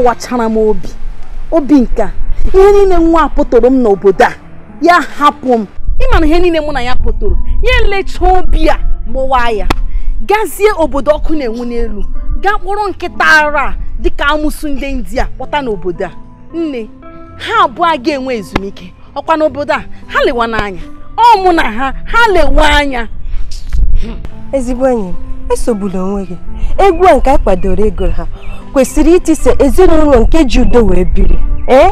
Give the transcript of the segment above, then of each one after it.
kụwachara m obi obi nka ihe niile nwa pụtoro m n'obodo a ya hapụ m ịma na ihe niile mụ na ya pụtụrụ ya elechaa obi a gbụwa ya gazie obodo ọkụ na-enwu n'elu gaa kpụrụ nkịta ara dịka amụsụ ndị india kpọta n'obodo a nne ha abụọ ga-enwe ezumike ọkwa n'obodo a ha lewa n'anya ọ mụ na ha ha lewe anya ezigbo enyi esogbula onwe gị egwu a nke a kwadoro ego ha kwesịrị itise ezinụlọ nke ji udo wee biri ee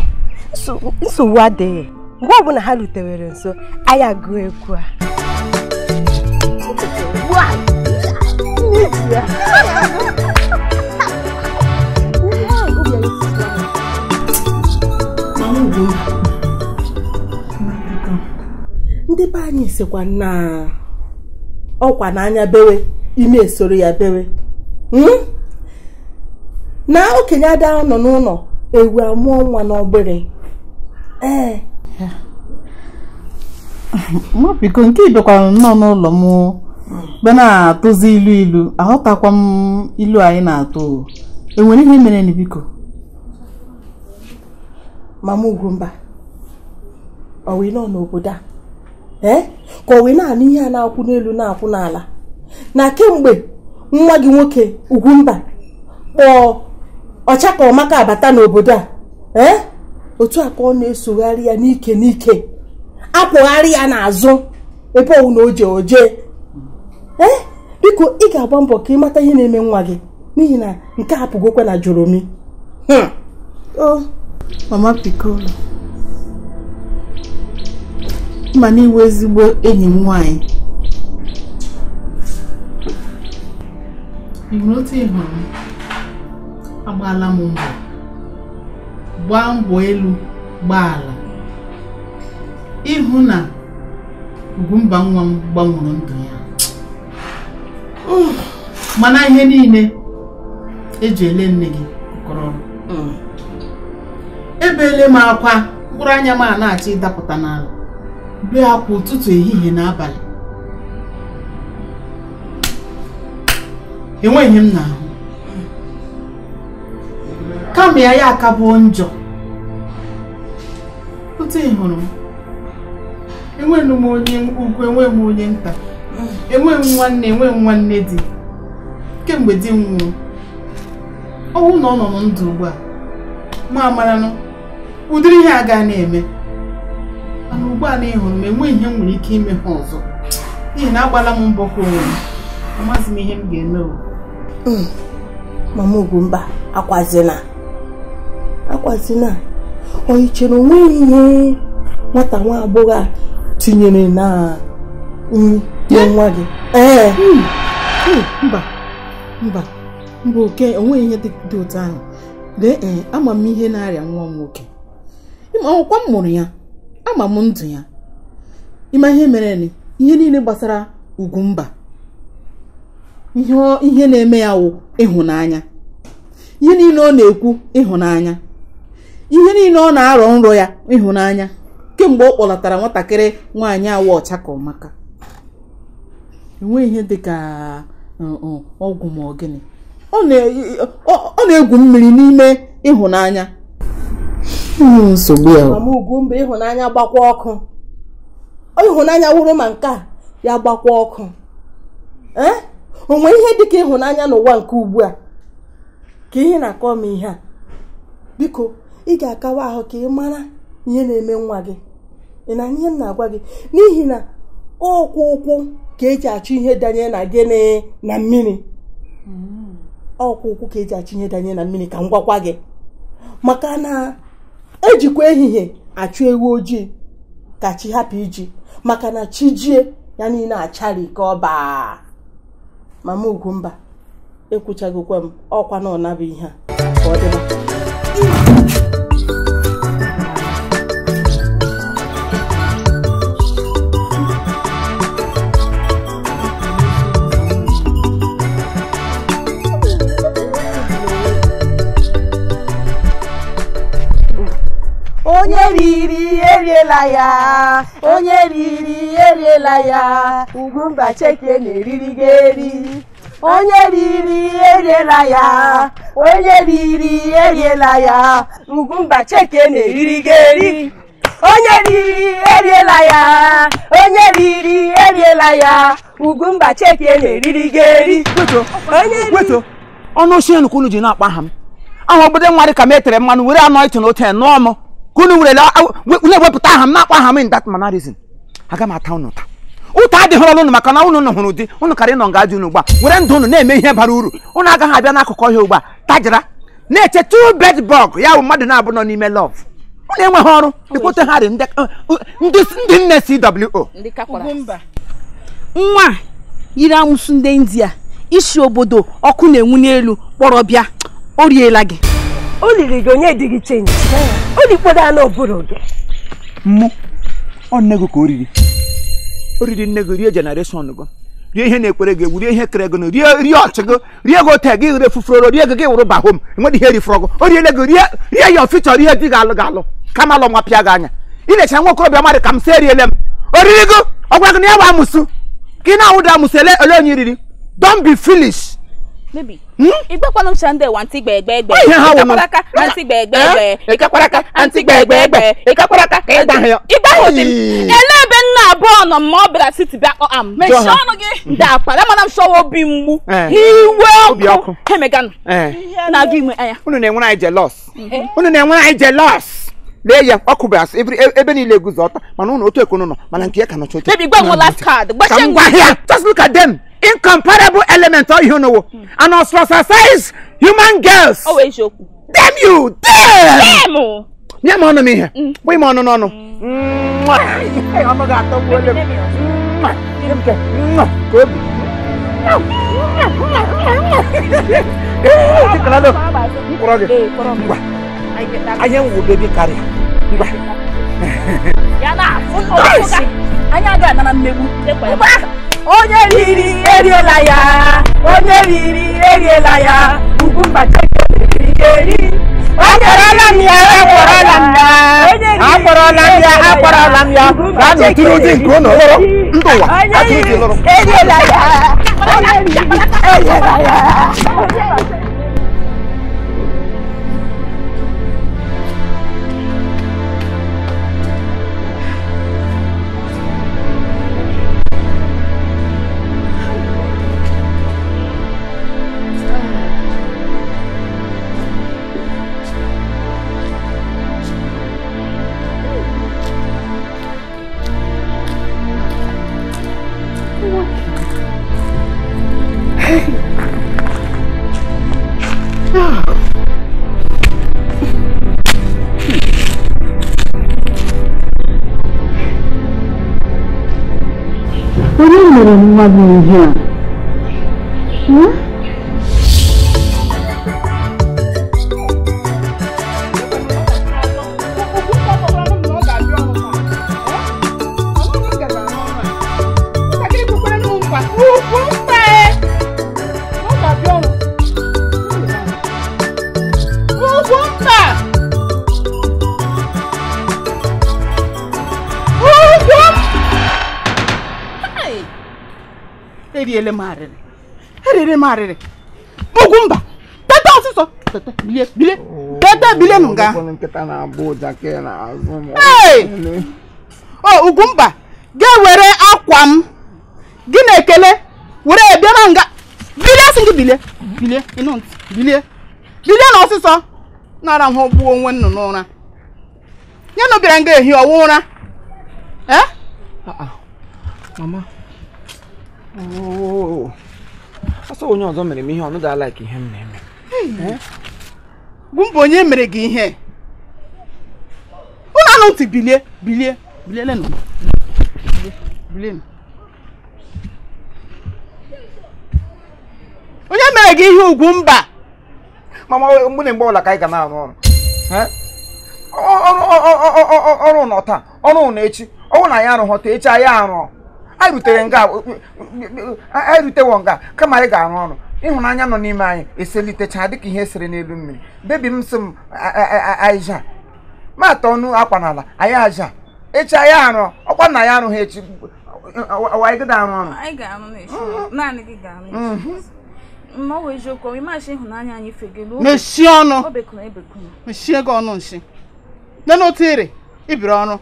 nsogbu adịghị mgbe ọbụla ha rutewere nso anyị agụọ egwu a ndị be anyị sikwa na ọkwa n'anya bewe ị na-esoro ya bere hmm? na okenye ada nọ n'ụlọ ewu amụọ nwa n'ọgbịrị ee eh. nke ịbịakwara nnọọ n'ụlọ m be na-atụzi ilu ilu aghọtakwa m ilu anyị na-atụ enwere ihe mere na biko mama ọ ọwụ nọ n'obodo a ee eh? ka wee na-anụ ihe a na-akwụ n'elu na-akwụ n'ala na kemgbe nwa gị nwoke Ugwumba kpọọ ọmaka abata n'obodo a ee eh? otu a ọ na-esogharị ya n'ike n'ike apụgharị ya n'azụ ebe ọwụ na oje oje ee eh? biko ị ga-agba mbọ ka ị mata ihe na-eme nwa gị n'ihi na nke a pụgokwa na joromi hmm. mama pikolo ma iwe ezigbo enyi m nwanyị ịhụrụ otu ịhụrụ m agbaala m mbọ gbaa mbọ elu gbaa ala ịhụ na Ugwumba nwa m gbanwere ndụ ya mana ihe niile eji ele nne gị kọrọ mm. ebeele m akwa mkpụrụ anya m a na-achọ ịdapụta n'ala bee akwa ụtụtụ ehihie n'abalị. enweghị m n'ahụ kama ya ya akabuo njọ otu ị hụrụ m enweghị m onye ukwu enweghị m onye nta enweghị m nwanne enweghị m nwanne di kemgbe di m nwụrụ ọnwụ na ọ nọ na ndụ ugbu a ma amaranụ ụdịrị ihe a gaa na-eme mana ugbu a na ịhụrụ m enweghị ihe m nwere ike ime ha ọzọ n'ihi na agbala m mbọ ka onwe m amaghịzi m ihe m ga-eme Hmm. mama Ugwumba akwazina akwazina ọ ichere onwe ihe nwata nwa abụghị a tinyere na nri nye nwa gị ee eh? eh. hmm. hmm, mba mba mba oke onwe ihe dị otu ahụ lee ee eh, ama m ihe na-arịa nwa m nwoke ọkwa m mụrụ ya ama m ndụ ya ịma ihe mere ihe niile gbasara ugwu mba. ihe na-eme ya wụ ịhụnanya ihe niile ọ na-ekwu ịhụnanya ihe niile ọ na-arọ nrọ ya ịhụnanya kemgbe ọ kpọlatara nwatakịrị nwaanyị awa ọcha ka ọmaka enweghị ihe dịka ọgwụ ma ọ gịnị ọ na-egwu mmiri n'ime ịhụnanya hmm, nsogbu ya mba ịhụnanya gbakwa ọkụ ịhụnanya wụrụ ma nke a ya gbakwa ọkụ ee onwe ihe dịka ịhụnanya n'ụwa nke ugbu a ka ihe na-akọ m ihe a biko ị ga-akawa ahụ ka ị mara ihe na-eme nwa gị ị na ihe m na-agwa gị n'ihi na ọkwụ ụkwụ ka eji achị ihe danye na gịnị na mmiri ọkwụ ụkwụ ka eji achọ ihe danye na mmiri ka m gwakwa gị maka na ejikwa ehihie achụ ewu ojii ka chi hapụ iji maka na chi jie ya niile achara ike ọba mama ugumba ekwuchagokwa m ọkwa na ọnabụ ihe a eriela ya onye riri eriela ya ugwu mba cheke na-eriri ga eri onye riri eriela ya onye riri eriela ya Ugwumba Chike na-eriri ga eri onye riri eriela ya onye riri eriela ya Ugwumba Chike na-eriri ga eri wetuo ọnụ osi enukwu unu ji na-akpa aha m aha obodo nwa dị ka metere mmanụ were anọ ịtụ n'ote nụọ m ka unu nwere na-ewepụta aha m na-akpọ aha m ndat mana aga m ata ụnụ taa ụta adịghị ọrụ unu maka na unu hụrụ ụdị ụnụ karị nọ nga dị unu were ndụ unu na-eme ihe bara uru ụnụ agaghị abịa n'akụkọ ihe ugbu a tajira na-eche tu bed bọg ya bụ mmadụ na-abụ nọ n'ime lọv ụnụ enweghị ọrụ dịkwote ha uh, ndị nne cwo nwa yiri amụsụ ndị india isi obodo ọkụ na-enwu n'elu kpọrọ bịa o riela gị o liri gị onye dị gị chenji o dikpodo anụ ọbụrụ gị mụ ọ nne gị ka o riri o riri nne gị rie jenereshọn gị rie ihe na ekpere gị egwu rie ihe kere gị rie rie ọchị gị rie gị ote gị ire fufuroro rie gị gị wụrụ bahom enwedị ihe rifọrọ gị o riele gị rie rie ya ofi chọrọ ihe di gị alụ gị alụ kama alụ nwa pịa gị anya ị na-echere nwa okorobịa mmadụ ka m si eriele m o riri gị ọgwa gị na ya bụ amụsụ ka ị na-awụda amụsụ ele ole onye riri don be foolish Baby. Igbe kwa nomsha nde wa anti gbegbe gbe. Ikakwaraka anti gbegbe gbe. Ikakwaraka anti gbegbe gbe. Ikakwaraka ka ịda hịọ. Ịda hịọ dị. Elebe nna abụọ nọ ma ọ bịara siti bịa kpọ am. Mechie ọnụ gị. Dapa. Lama na msọwa obi mgbu. Eh. Iwe hmm. eh? ọkụ. Hemeganu. Na-agụ ime anya. Unu na-enwere anyị jelos. Unu na-enwere anyị jelos lee ya ọ kụbara asị ebe niile eguzo ọta mana ụnụ otu ekwunu nọ mana nke ya ka nọcha otu. Baby gbanwe last card. Gbachie ngwa. Ka m gwa Just look at them incomparable element ọ ihe n'owo and ostracize human girls. ọ wee isiokwu. Damn you dem. dem o. nye m ọnụ m ihe bụ ime ọnụ n'ọnụ. ọnụ ga-atọ m ole m. ka obi. Chikalado, mkpọrọ gị. Ngwa, anya nwụ bebi karịa. Ngwa. Ya na-afụ n'ọkụ ka anya ga-anara mmegbu onye riri eriela ya onye riri eriela ya ugwu mgbachaka eri akpọrọla m ya akpọrọla m ya akpọrọla m ya akpọrọla m ya gaa n'oturu ụdị nke ụlọ lụrụ ndụ ụwa eriela ya eriela ya era uma ninja. eriri m arịrị eriri m arịrị ugwu mba teta ọsịsọ teta bilie bilie teta bilie nụ nga oh, o ugwu mba ga-ewere akwa m gị na-ekele were ebịa e na nga bilie sị gị bilie bilie ịnụ ntị bilie bilie na ọsịsọ nara ahụ gbuo onwe nnụ n'ụra nye nụ bịara nga ehi ọwụ ah, ụra ah. ee mama ọsọ onye ọzọ mere m ihe ọnụ da ka ihe m na-eme bụ mba onye mere gị ihe ụlọ anụ ntị bilie bilie bilielenu bilienu onye mere gị ihe ugwu mba mama mgbe na mgbe ọla ka anyị ga na-arụ ọrụ ọrụ ọrụ nọ taa ọrụ na echi ọnwụ na anyị arụghọta echi anyị arụ. anyị rutere nga anyị rutewo nga kama anyị ga-arụ ọrụ ịhụnanya nọ n'ime anyị eselitechaa dịka ihe esere n'elu mmiri bebi m sị m aịja maata ọnụ akwa n'ala anyị aja echi anyị arụ ọkwa nna ya arụghị echi anyị ga arụ ọrụ mechie mhm. ọnụ e mechie gị ọnụ nshi n'otu iri ibiri ọrụ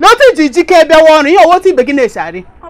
n'otu iji jike bịawa ọrụ ihe otu ibe gị na-esi arị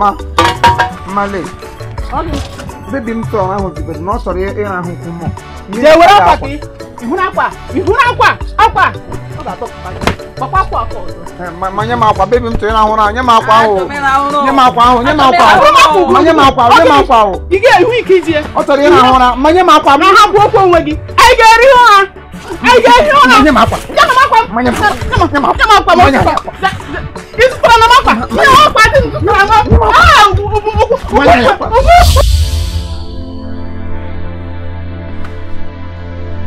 ma ma male bebi m tọrọ ahụ bidoro na ọ chọrọ ịrahụ nkwụ mụ jee were akwa gị ịhụrụ akwa ịhụrụ akwa akwa eh, ma nye m akwa bebi m tụrụ ịrahụ ụra nye m akwa ahụ nye m akwa ahụ nye m akwa ahụ ma nye m akwa ahụ nye m akwa ahụ ọ chọrọ ịrahụ ụra ma nye m akwa m ha bụ okwu onwe gị anyị ga-eri ha! Nye m akwa.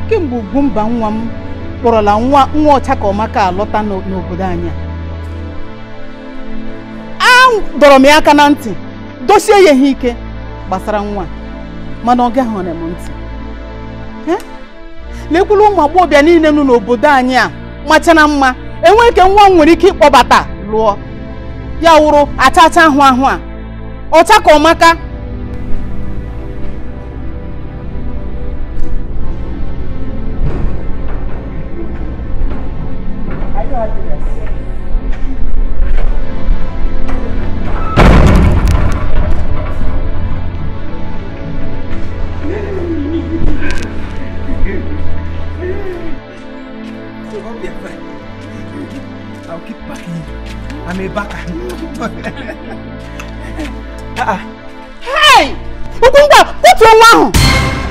kemgbe Ugwumba nwa m kpọrọla nwa nwa ọcha ka ọmaka alọta n'obodo anyị a dọrọ m ya aka na ntị dochie ya ihe ike gbasara nwa mana ọ gaghị m ntị lekwulu ụmụ agbọghọbịa niile nọ n'obodo anyị a machara mma enwe ike nwa m nwere ike ịkpọbata lụọ ya wụrụ achacha ahụ ahụ a ọcha ka ọmaka I'm a backer. uh nwa ahụ!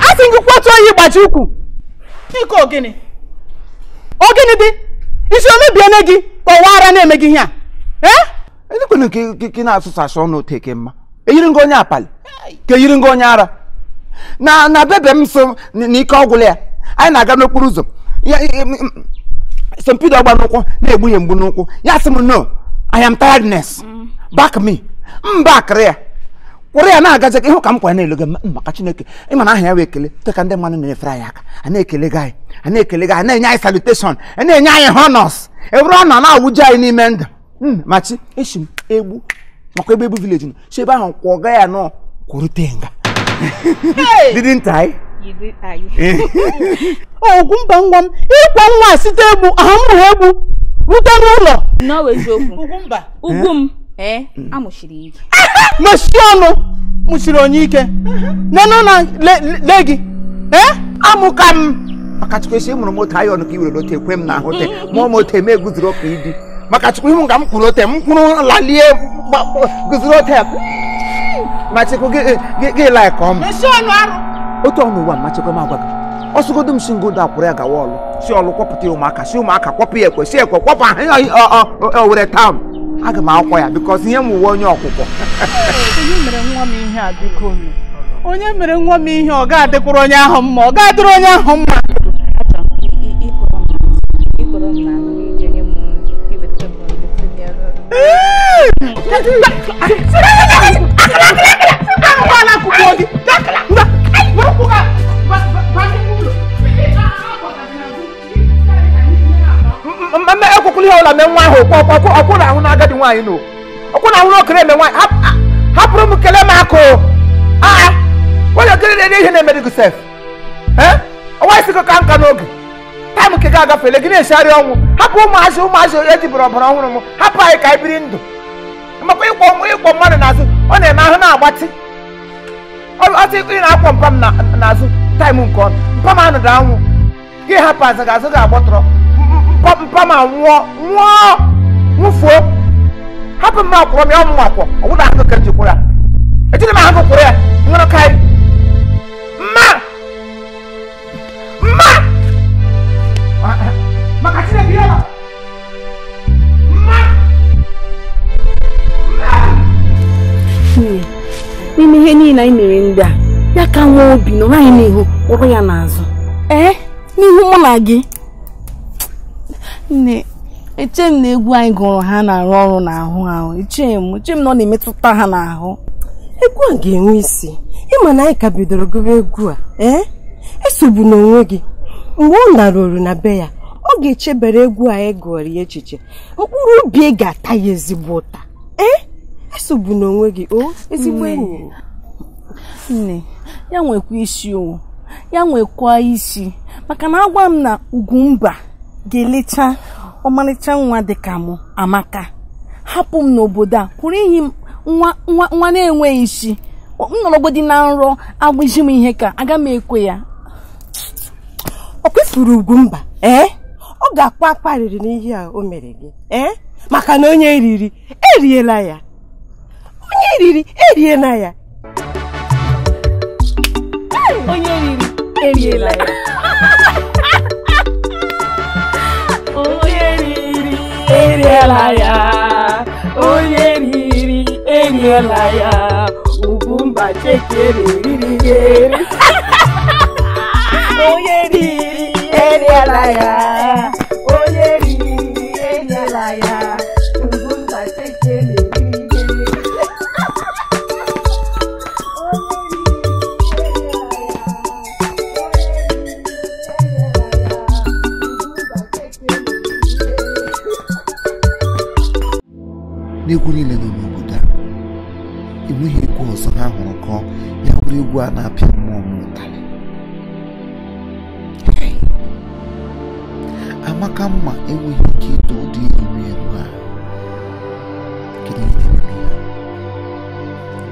A sị gị kwatuo ụkwụ ịgbaji ukwu! Biko ogini. dị? Isi omebiene gị kọwara na-eme gị e. a. Eh? nke na-asụsasụ ọnụ teke mma. Eyiri onye apali. Ka yiri ngị onye ara. Na na bebe m so ọgwụ ya. Anyị na-aga n'okporo ụzọ. Sọmpidọ ọgba n'ụkwụ na-egbu mgbu n'ụkwụ. Ya sị m no. I am tiredness. Back me. M back there. kwụrụ ya na-agazi ihu ka m kwara na-elogo maka Chineke ma na aha ya wee ekele teka ndị mmadụ na-efere anyị aka a na-ekele gị anyị a na-ekele gị anyị na-enye anyị salutation a na-enye anyị honors eburu ọ nọ na-awụju anyị n'ime ndụ machi echi m egbu makwa ebe egbu vileji nọ so ebe ahụ kwụ ya nọ kwurute nga didn't I? ogwu mba nwa m ịkwa nwa site egbu ahụ mụrụ egbu rute n'ụlọ ugwu m amụchiri ike. mechie ọnụ mụchiri onye ike nenụ na le gị amụka m maka chukwu esi mụrụ otu ayọ ọnụ ka i were lote ekwe m na ahụ te m moto eme guzoro ọka ịdị maka chukwu ihu ka m kwụrụ ote m kwuru lalie guzoro ote ma chukwu gị laịka ọmụ otu ọnụ ụwa machekwa m agwa gị ọsụgodo m si ngodo akwụrụ ya gawa ọlụ si ọlụ kwọpụta ụmụaka si ụmụaka kwọpụ ya ekwe si ekwe kwọpụ were owere tam aga m akwọ ya bikọzi ihe m uwe onye ọkwụkwọ onye mere nwa m ihe ọ ga onye ahụ mma ọ ga-adịrị onye ahụ mma mme ekwukwulu ihe ọla mee nwa ahụ okwu ọkụ ọkụ na ahụ na agadi nwaanyị nụ ọkụ na ahụ na okere eme nwaanyị hapụrụ m kelee m akụ aa onye okere na-ere ihe na-emere gị sef ọnwa isi ka nka n'oge taịm nke ga-agafele gị na-echegharị ọnwụ hapụ ụmụazị ụmụazị ejibụrụ ọbara ọhụrụ m hapụ anyị ka anyị biri ndụ makwa ịkwọ ịkwọ mmadụ n'azụ ọ na-eme ahụ na-agbatị ọtụ ị na-akwọ mpa m n'azụ taịm nke ọnụ mpa m anụ da anwụ gị hapụ azụ gị azụ ga-agbọtọrọ kɔmpa ah, ma nwɔ nwɔ nwufuo hapi mu akɔrɔ mi ɔmu akɔ ɔwɔ na ahokɛ nti kura eti ne ma ahokɛ kura ŋmɛrɛ kae mma mma makati na bi yɛ ma. n'ime ihe niile anyị mere ndị a ya ka nwa obi nọrọ anyị n'ihu kpụrụ ya n'azụ ee eh? n'ihu mụ na gị nne eche m na egwu anyị gụrụ ha na-arụ ọrụ n'ahụ ahụ eche m eche m na ọ na-emetụta ha n'ahụ egwu a ga-enwe isi ịma na anyị ka bidoro gụba egwu a ee eh? esogbu n'onwe gị mgbe ọ narụrụ na be ya ọ ga-echebere egwu anyị e gụrụ ya echiche mkpụrụ obi e ga-ata ya ezigbo ụta ee eh? esogbu n'onwe gị o ezigbo enyi nne ya nwekwa isi o ya nwekwa isi maka na agwa m na ugwu mba ga-elecha ọmarịcha nwa dịka m amaka hapụ m n'obodo a kwụrụ enyi m nwa na-enweghị isi m dị na nrọ agwụji m ihe ka aga m ekwe ya ọ kwefuru ugwu mba ee ọ ga-akpa akparịrị n'ihe a o mere gị ee maka na onye riri eriela ya onye riri onye eriri eriela ya elielaya onye riri elielaya ugwu mba chekere riri eri onye riri elielaya egwu niile nọ n'obodo a enweghị egwu ọzọ ha hụrụ kọọ ya bụrụ egwu a na-apịa mmụọ m ụtarị amaka mma enweghị ike ịtọ ụdị iru eru a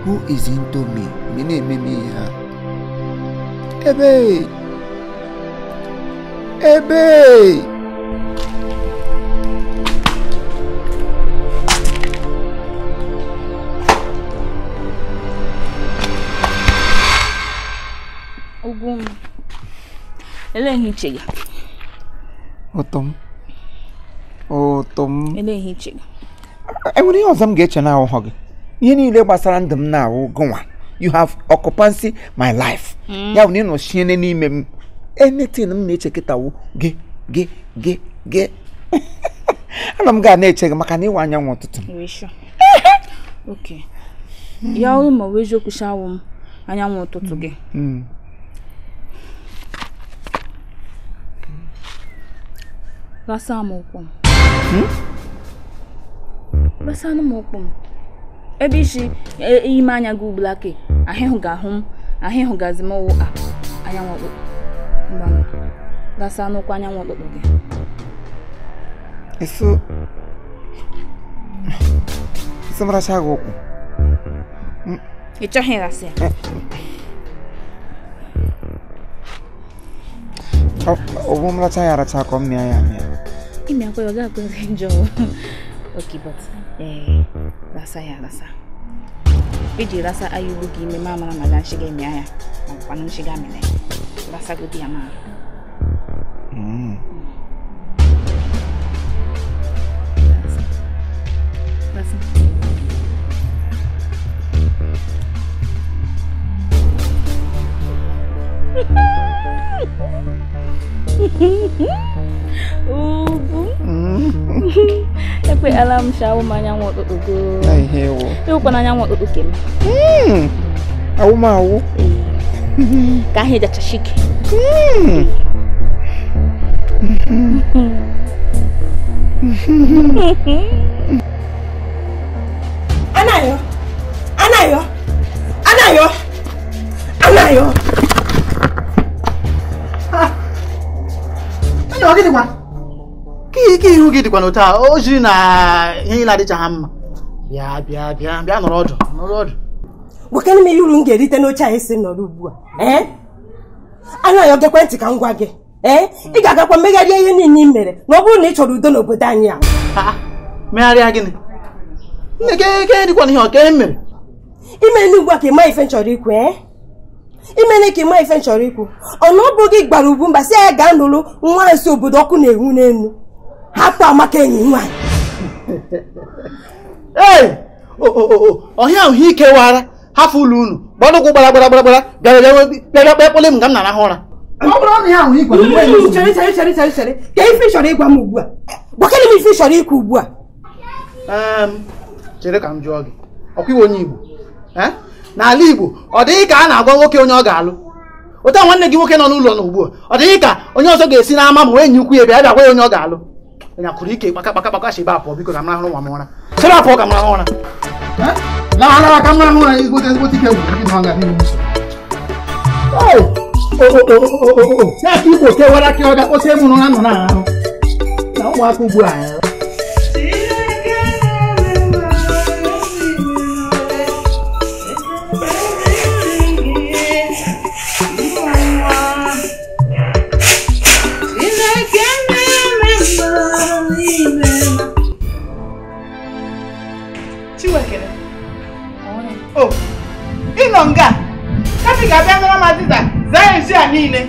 who is into me me na-eme m ihe ha ebe ebe eleghị ehiche gị m ụtọ m ele ehiche enwere ihe ọzọ m ga-eche na gị ihe niile gbasara ndụ m na-ahụ gụnwa you have occupancy my life hmm. ya bụ na ị n'ime m anything m na-eche kịtawo gị gị gị gị ana m ga na-eche gị maka na ịwa anyanwụ ụtụtụ ya ọ ma ọ bụ eziokwu shawụ m anyanwụ ụtụtụ gị hmm. Hmm. Gbasaa m m. Gbasanụ hmm? m m. Ebe isi e, ime anya gị ugbula ke ahịhụ ga-ahụ m ahịhụ gazi m anyanwụ ọkpụkpụ. Mgbanwe gbasaa n'ụkwụ anyanwụ ọkpụkpụ gị. Eso Eso m gị ụkwụ. Ị chọghị ya? obumlatha yara thakho mmya yami imyakho yokakwekhenjo okay but um lasa ya lasa iji lasa ayuluka ime mamara ma ganshika mm. imya ya makwana nshika mina lasa kuti ya mara lasa Tapi alam siya umanyang mo tutugo. Ay, hewo. Hewo pa nanyang mo tutukin. Hmm. Aw mau. Kahit da chashik. Hmm. Anayo! Anayo! Anayo! Anayo! ọ ike ihu gị dịkwa n'otu a o jiri na ihe na-adịchaghị mma bịa bịa bịa bịa nọrọ ọdụ nọrọ ọdụ wekenụ m ihe uru m ga-erite n'oche anyị si nọrọ ugbu a eh? anaghị oge ekwentị ka m gwa gị ee eh? ị ga-agakwa megharịa ihe niile ị mere na ọ bụrụ na ị chọrọ udo n'obodo anyị a megharịa gịnị nne gị dịkwa n'ihe ọka e mere ime n'ugbu a ka ị ma ife m chọrọ ikwu ee eh? imene ka ịma ife nchọrọ ikwu ọnụ ọ bụghị gbara ugwu mba si ya e, ga nụrụ nwa nso obodo ọkụ na-enwu n'elu hapụ amaka enyi nwaanyị ọhịa ahụ ike wara hapụ ụlọ unu gbara ụkwụ gbara gbara gbara gbara bịara bịara kpee kpele m ka m na-arahụ ụra ka ife chọrọ ịgwa m ugbu a gbakere m ife chọrọ ikwu ugbu a ehm, chere ka m jụọ gị ọkwa iwe onye Igbo ehm? n'ala Igbo ọ dịghị ka a na-agwa nwoke onye ọ ga-alụ ụta nwanne gị nwoke nọ n'ụlọ na ugbu a ọ dịghị ka onye ọzọ ga-esi n'ama ma enyi ukwu ya bịa bịa gwa ya onye ọ ga-alụ nya kụrụ ike kpaka kpaka kpaka biko ụmụaka o oh, ịnọ nga kapị ga-abịa zaa ezi a niile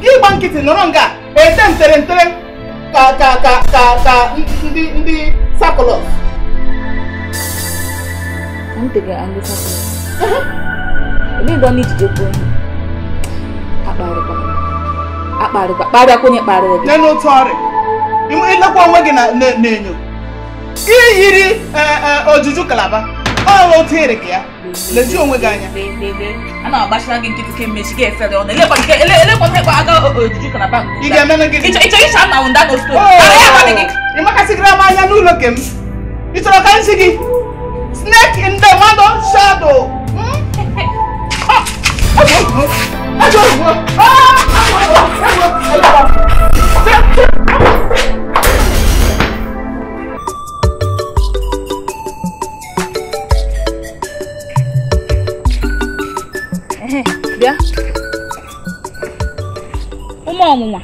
gị gba nkịtị nọrọ nga ete ntere ntere ka ka ka ka ka ndị ndị sakụlọs ịlekwa onwe gị na enyo iyiri eh, eh, ojuju kalaba Paolo oh, Terek ya. Leji onwe gị anya. A na-agbachara gị nkịtị ka mmechi gị efere ọnụ. Elekọta ịkwa aga ojiji ka na bank. Ị ga-eme gị. Ịchọ ịcha na ụnda na stone. Ị makasịgịra m anya n'ụlọ ke m. Ị chọrọ ka m si Snake in the mother shadow. Ajọ ozugbo. Ajọ ozugbo. bịa ụmụ ọnwụnwa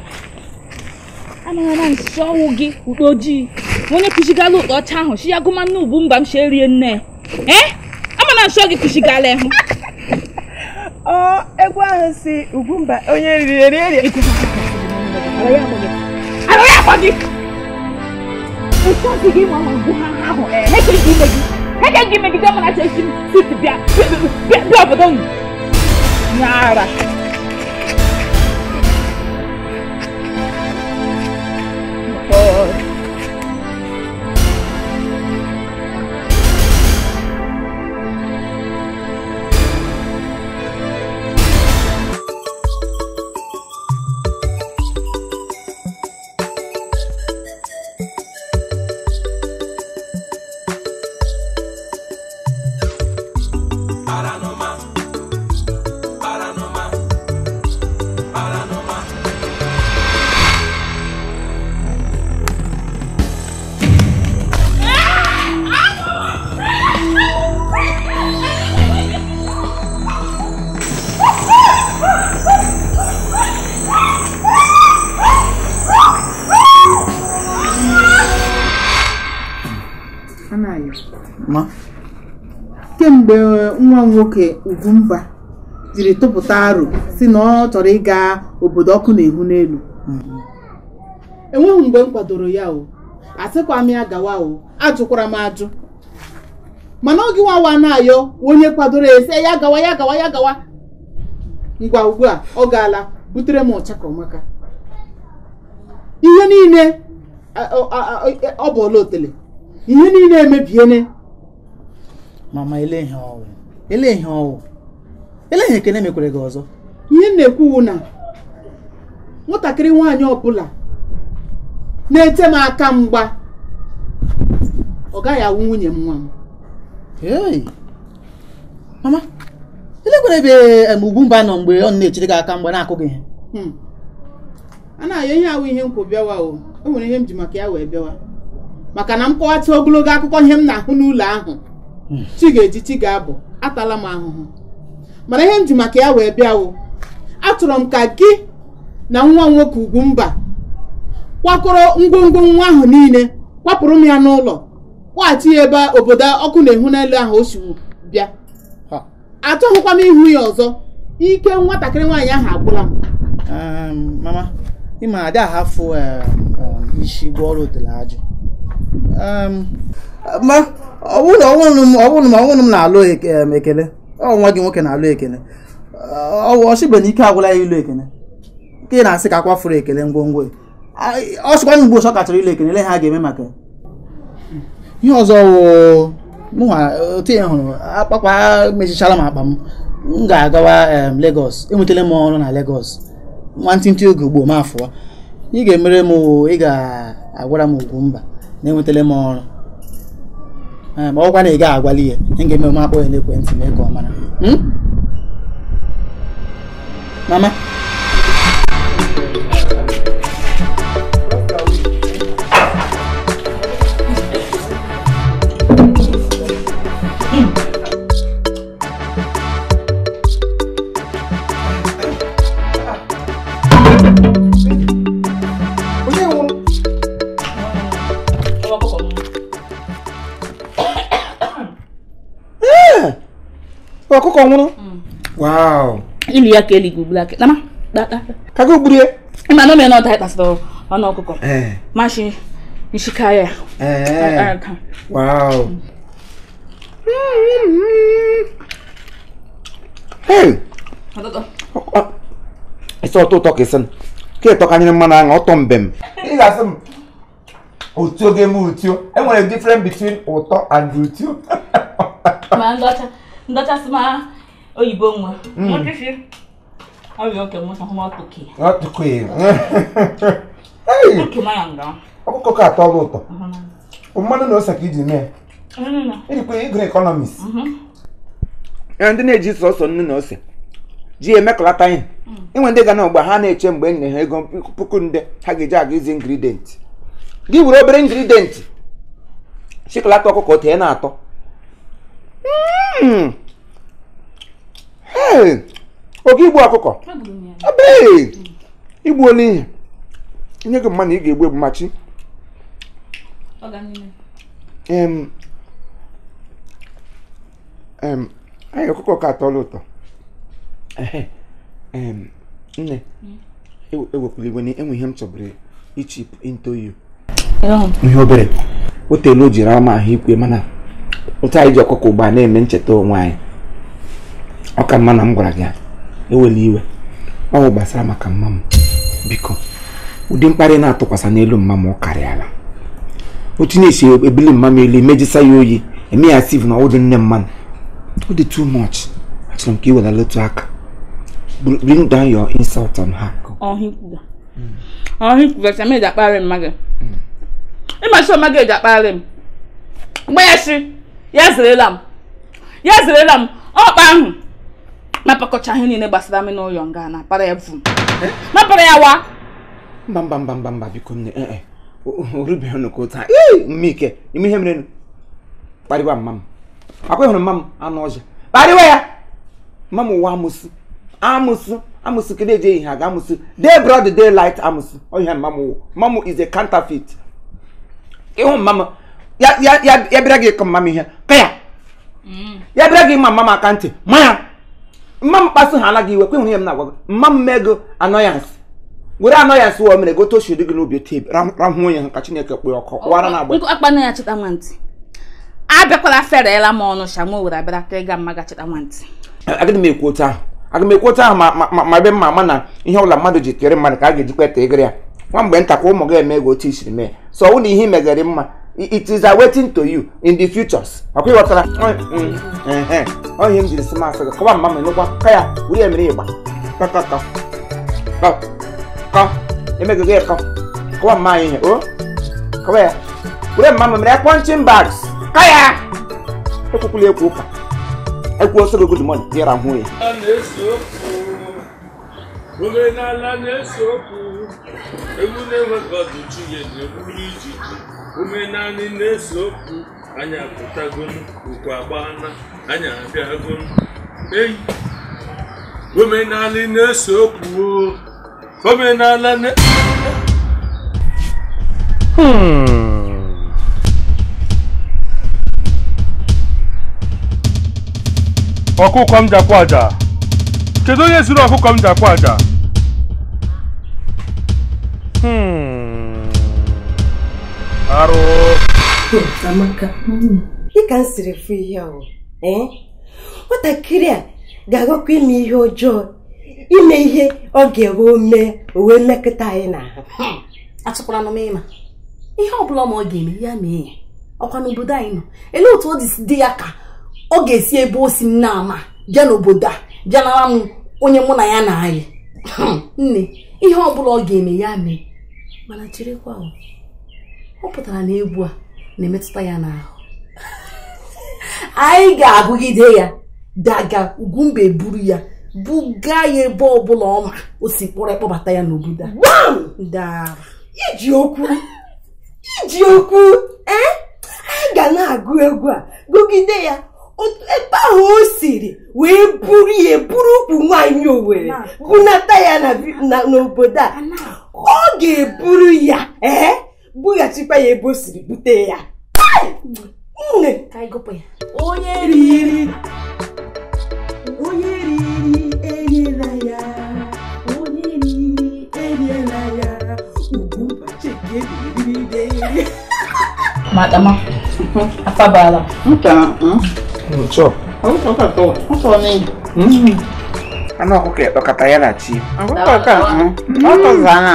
amara nsọ ọnwụ gị ụkpa ojii onye kụchigala ụkpa ọcha ahụ si ya gụma nne ubu mba m si erie nne ee amara nsọ gị kụchigala ịhụ egwu ahụ si ugwumba onye riri eri eri ara ya akwa gị ụsọzi gị nwa ma ngwu ha ahụ ee ha ekeghị ime gị ha ekeghị ime gị gọmana chesi m sit bịa bịa obodo unu Nara! Pode. nwa nwoke Ugwumba jiri tụpụta aro si na ọ chọrọ ịga obodo ọkụ na-ehu n'elu enweghị mgbe m kwadoro ya o asịkwa m ya gawa o ajụkwara m ajụ mana oge nwawa na-ayọ onye kwadoro ya ese ya gawa ya gawa ya gawa ngwa ugbu a ọ gaala butere m maka. ihe niile e, ọ bụ ọla otele ihe niile emebiene ele ihe ọwụ ele ihe ekene mekwere gị ọzọ ihe m na-ekwu na nwatakịrị nwaanyị ọbụla na-ete m aka mgba ọ gaghị awụ nwunye m nwa m mama elekwere ebe mba nọ mgbe ọ na-echere gị aka mgba na-akụ gị hmm. a na-ayọ ihe awụ ihe nkwụ bịawa o e nwere ihe m ji maka ya wee bịawa maka na m kọwata ogologo akụkọ ihe m na-ahụ n'ụlọ ahụ hmm. chi ga-eji chi ga-abụ atala m ahụhụ mana ihe m ji maka ya wee bịawo atụrụ m ka gị na nwa nwoke ugwu mba kwakọrọ ngwongwo nwa ahụ niile kwapụrụ m ya n'ụlọ kpọghachi ya ebe obodo ọkụ na-ehu n'elu ahụ o siwu bịa atụghịkwa m ihu ya ọzọ ike nwatakịrị nwaanyị ahụ agwụla m mama ọbụna ọbụna ma ọnwụrụ m na-alụ e-, ekele ọ nwa gị nwoke na-alụ ekele ọchịbe na ike agwụla ya ilu ekele nke ị na-asị ka akwafuru ekele ngwongwo e. ọ sịkwana mgbe ụsọ kachara ilu ekele ha ga-eme maka ihe ọzọ mụnwa otu ya hụrụ akpakpa mechichara m akpa m m ga-agawa legos enwetala m ọrụ na Lagos nwantịntị oge ugbo ma afụwa ị ga-emere m ị ga-agwara m ugwu mba na enwetala m ọrụ ma ọkwa na ị ga agwali ya ị ga-eme m akpọ ya n'ekwentị mee ka ọ mara hmm? mama ọkụkọ nwụrụ ilu ya ka eligwu laka nama kago gburu ya ma na omena ọda ịkpasịrị ọnụ ọkụkọ mashi nshika ya ịsị ọtọ ụtọ ka ịsịn ka ịtọkanyere mmanụ aṅụ ọtọ mbem ị ga-asị m otio ga-eme utio enwere different between ụtọ and utio ma ndọcha ndọchasị ma oyibo nwa hmm. ọkụkọ ka atọ ọlụ ụtọ mmanụ na ose ka iji mee ejikwa igre ekọnọmis ndị na-eji sọsọ nnu na ose ji emekọlata ihe hmm. inwe ndị ga na ọgba ha na-eche mgbe enye ha ego puku nde ha ga-eji aga izi ingridient gị were obere ingridient shikolata ọkụkọ tee na atọ hmm. oge igbu ọkụkọ ebee igbuola ihe nye gị mma na ị ga-egbu egbu machi anyị ọkụkọ ka atọla ụtọ nne hmm? ewepụrụ igwe na enwe ihe m chọbụrụ ichip into you ihe obere o teela o jiri ama ahụ ikwe mana ụtọ anyị ji ọkụkọ ụgba na-eme ncheta onwe anyị ọ ka mma na m gwara gị ewela iwe ọ bụ gbasara maka mma m biko ụdị mkparị na-atụkwasị n'elu mma m ọ karịala otu na-esi ebili mma m elu emejisa ya oyi eme ya stiv na ọwụdị nne mmanụ ọ dị too much achọrọ m ka ị wela lotu aka bring down your insult on her. ọhịkwugasị akparị mmadụ hmm. ịmasị ọma ga-eji akparị m mgbe ya si ya zerela m ya zerela m ọ ọkpa ahụ napakọcha ihe niile gbasara m n'ụlọ nga napara ya vum eh? napara ya wa mba mba mba mba mba biko nne ee orubeghị nnukwu taa ike ime ihe mere kparịwa mma m akwa mma m anụ ọzọ kparịwa ya mma m ụwa amụsụ amụsụ amụsụ kedu ihe aga amụsụ day amụsụ ọhịa mma m mma m ịhụ mma m ya bịara gị ịkọ mma m ihe ka ya ya bịara gị ịma mma m aka ntị ma ya mma mkpasu ha anaghị iwe kwenwere ihe m na-agwa gị mma mmego anọyansị were anọyansị wee mere gote oshu dị gị n'obi ote rahụ onye ka chineke kpee ọkụ wara na agba akpa na ya chịta nwantị abịakwala ferela m ọnụ sha m were abịara ka ịga mma ga chịta nwantị agịdị m ekwu otu ahụ aga m ekwu otu ahụ ma ebe mma ama na ihe ọbụla mmadụ ji tere mmadụ ka a ga-ejikwa ete egere ya nwa mgbe ka ụmụ gị eme ego otu isiri mee sọ ọ na ihe megere mma it is awaiting to you in the futures akwai watara onye mm, m jiri sima asị kọba mma mere ụgwọ ka oh. ya wuri ya mere ịgba kọkọkọ kọ emegogo ịkọ kọba mma anyị o kọba ya wuri mma mere punching bags ka ya ekwukwula ekwu ụka ekwu oso good morning ya ra hụ ya omenala na-ese okwu egwu na-enweghị ọdụ chi ya na-egburu ijiji ume naanị na-ese okwu anyị apụtagonu ukwu agbana anyị abịagonu eyi omenala na-ese okwu omenala na hmm. ọkụkọ m jakwa aja kedu onye zuru ọkụkọ m jakwa aja hmm dịka mm. m siri fụ ihe ahụ eh? nwatakịrị a ga-agakwa ime ihe ọjọọ ime ihe ọ ga-ewe mee uwe mmekọta anyị na ha hmm. m ịma ihe ọ bụla ma ọ ga-eme ya mee ya ọkwa n'obodo anyị nọ elee otu ọ dị dị ya ka ọ ga-esi ebe o si nna ama bịa n'obodo a bịa nara m onye mụ na ya na anyị hmm. nne ihe ọ bụla ọ ga-eme ya mee mana cherekwa ọ pụtara na egwu a na-emetụta ya n'ahụ anyị ga-agụgide ya daga ugwumbe buru ya buga ya ebe ọbụla ọ ma o si kpọrọ ịkpọbata ya n'obodo a iji okwu iji okwu e? anyị ga na-agụ egwu a gụgide ya ebe ahụ o siri wee buru ya buru ukwu nwanyị owere bunata ya n'obodo a ọ ga-eburu ya ee bughachikwa ya ebe o siri bute ya nne onye riri onye riri enyela ya onye riri enyela ya ugwu mbachi hmm? ka ebiriri n'eri madama afabala nka ụtọ ụtọ katọ ụtọ n'ịdị hmm. anụ ọkụkọ ya kpakọta ya na chi ọkụkọ ka ọ kọzana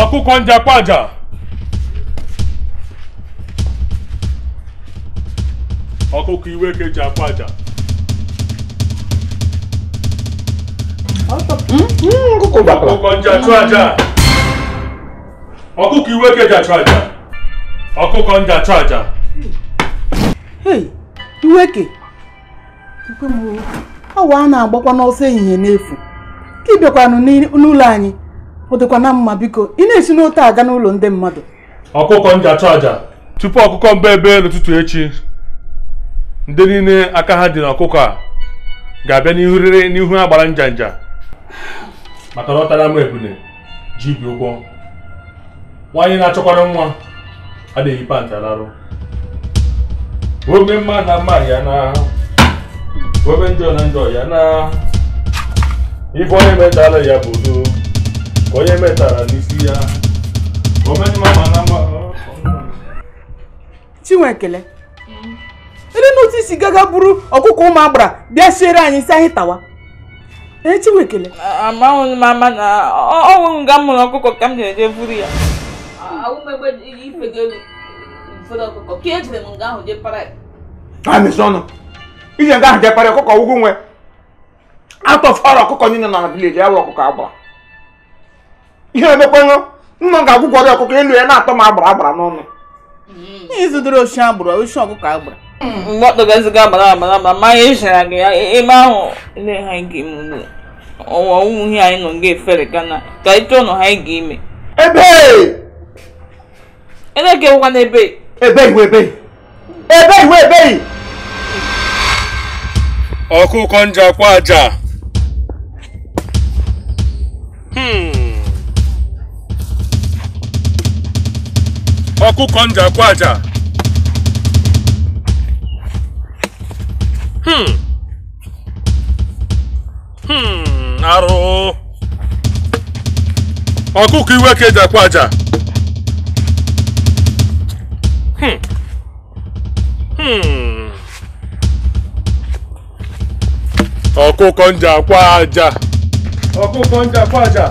ọkụkọ njakpaja ọkụkọ iwe ka eji aja ọkụkọ njachụ aja ọkụkọ iwe ka eji achụ aja ọkụkọ e? ọ a na-agbakwa n'ọsọ ehihie n'efu ka ị bịakwanụ n'ụlọ anyị ọ na mma biko ị na-esi n'ote aga n'ụlọ ndị mmadụ ọkụkọ nja achụ aja tupu ọkụkọ mba ebe n'ụtụtụ echi ndị niile aka ha dị n'ọkụkọ a ga-abịa n'ihu rere n'ihu ha gbara nja nja maka na ọ m ebune ji ibi ụgwọ nwanyị na-achọkwara nwa adịghị panta larụ ome mma na mma ya na ome njọ na njọ ya na ife onye metala ya bụ udo onye metara n'isi ya chinwekele ndị n'otu isi gaga buru ọkụkọ ụmụ agbara bịa siere anyị isi anyị tawa ee chinwekele amaghị m ama na nga mụrụ ọkụkọ ka m na-eje buru ya iji nga ahụ jepara ọkụkọ ugwu nwe atọ fọrọ ọkụkọ niile na vileji ya wụ ọkụkọ agbara ihe emekwanụ nna ga-agwụgwọ gị ọkụkọ elu ya na-atọ m agbara agbara n'ọnụ ịzụdoro oshi agbụrụ oshi ọkụkọ agbara mgbọtọga nziga agbara agbara ma anyị echara gị ya e, ebe ahụ ele ha ga ime ọwa ihe anyị nọ nga efere gana ka ịchọ nọ ha ga ime ebe eleke wụkwa n'ebe ebe iwe ebe ebe ọkụkọ njakwa aja hmm. ọkụkọ njakwu aja arụ ọkụkọ iwe ka ejakwu aja ọkụkọ njakwu aja ọkụkọ njakwu aja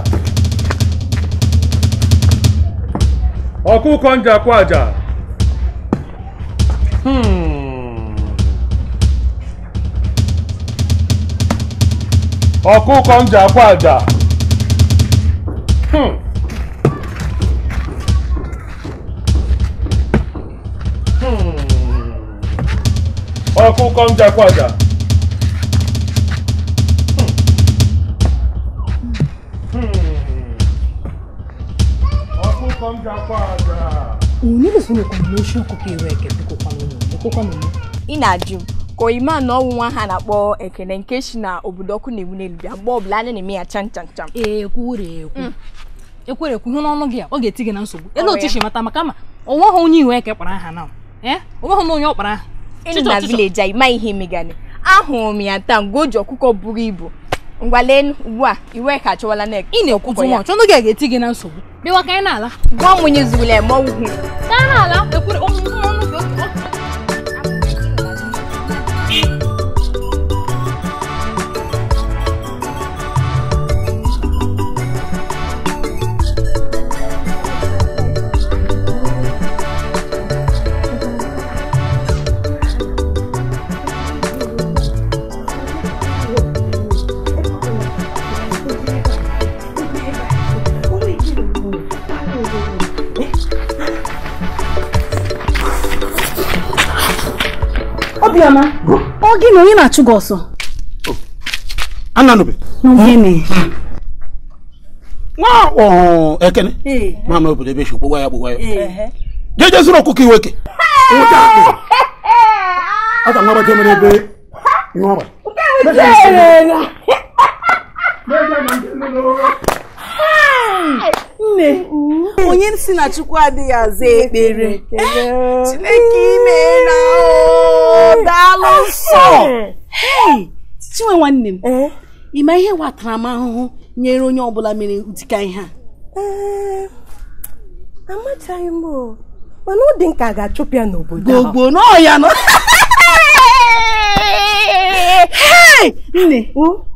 ọkụkọ njakwu aja ọkụkọ njakwu aja ọkụkọ njakwu aja onye soro kọmbineshọn ọkụkọ iwe eke ị na-ajụ m ka oyima na ọnwụ nwa ha na-akpọ ekene nke si na obodo ọkụ na-ewu n'elu bịa mgbe ọbụla anyị na-eme ya chan chan chan mm. ekwere ekwu ihe n'ọnụ gị a ọ ga-eti gị na nsogbu ele otu si mata maka ma onwe ha onye iwe eke kpara aha na onwe ha na onye ọ kpara aha na vileji anyị ma ihe megane ahụrụ m ya taa mgbe o ji ọkụkọ buru ibu ngwa ugbu a iwe ka achọwala ị na-ekwuzi nwa chọnụ gị ga-eti gị na nsogbu bịawa ka anyị na-ala gwa mụnye zugule ma ọgwụ ka anyị na-ala ekwere ọmụmụ oh, ọnụ oh, oh, Obiọma, ọ gị na onye na-achụ gị ọsọ? Ananobe. Gịnị? Nwa ọhụụ Ekene. Mama obodo ebe esi ya gbogbo ya. Jeje zụrụ ọkụkọ iweke. Nwụta akpị. A ka nwa baje mere ebe nwa abalị. Nke ya. nne onye si na chukwu adịghị aza ekpere eh, chineke imeela daalụ eh. nsọ chinwe nwanne m ị eh. ịma ihe ahụhụ nyere onye ọbụla mere ụdịka ihe a amachaghị m mana ọ dị nka ga-achụpụ ya n'obodo gbogbo n'ọya nọ nne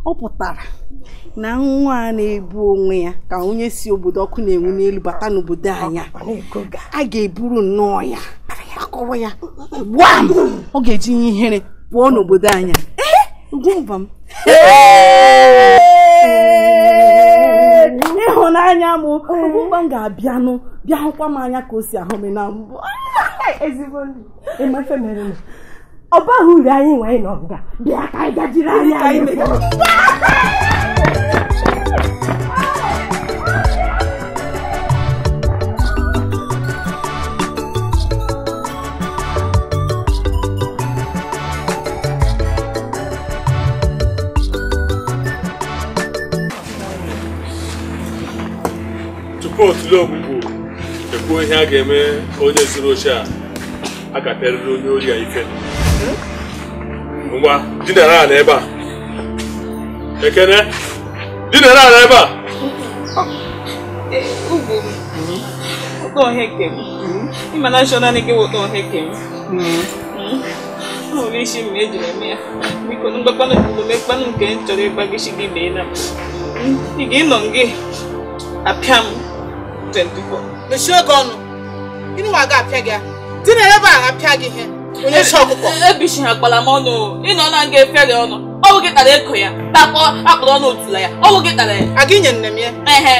ọ pụtara na nwa a na-ebu onwe ya ka onye si obodo ọkụ na-enwu n'elu bata n'obodo anya a ga-eburu nnọọ ya akọrọ ya gbam ọ ga-eji nye ihere pụọ n'obodo anya gwụba ịhụnanya m ga-abịanụ bịa hụkwa m anya ka o si ahụ m na mbụ ọ baghị uru anyị nwe anyị n'ọbụga bịa ka anyị gajiri anya anyị tupu otule ogbugbu ekwuo ihe a ga-eme onye zuru oche a a onye ori a ife ngwa dinara ala ebe a ekene dinara ala ebe a ugwu ụtọ ọhịa nke m ịma na shọ naanị gị ụtọ ọhịa nke m nwere isi m ejiri eme ya biko na mgbakpanụ omume mkpanụ nke m chọrọ ịgbagisi gị mee na ị ga-ịnọ gị apịa m 24 mechie oge ọnụ ịnụwa ga apịa gị dinara ebe a apịa gị ihe onye si ọkụkọ ebichi e, e, ha kpara m ọnụ ị nọ na nga efere ọnụ ọwụ gị tara eko ya takpọ akpọrọ ọnụ otula ya ọwụ gị tara ya aga inye nne m ya ehe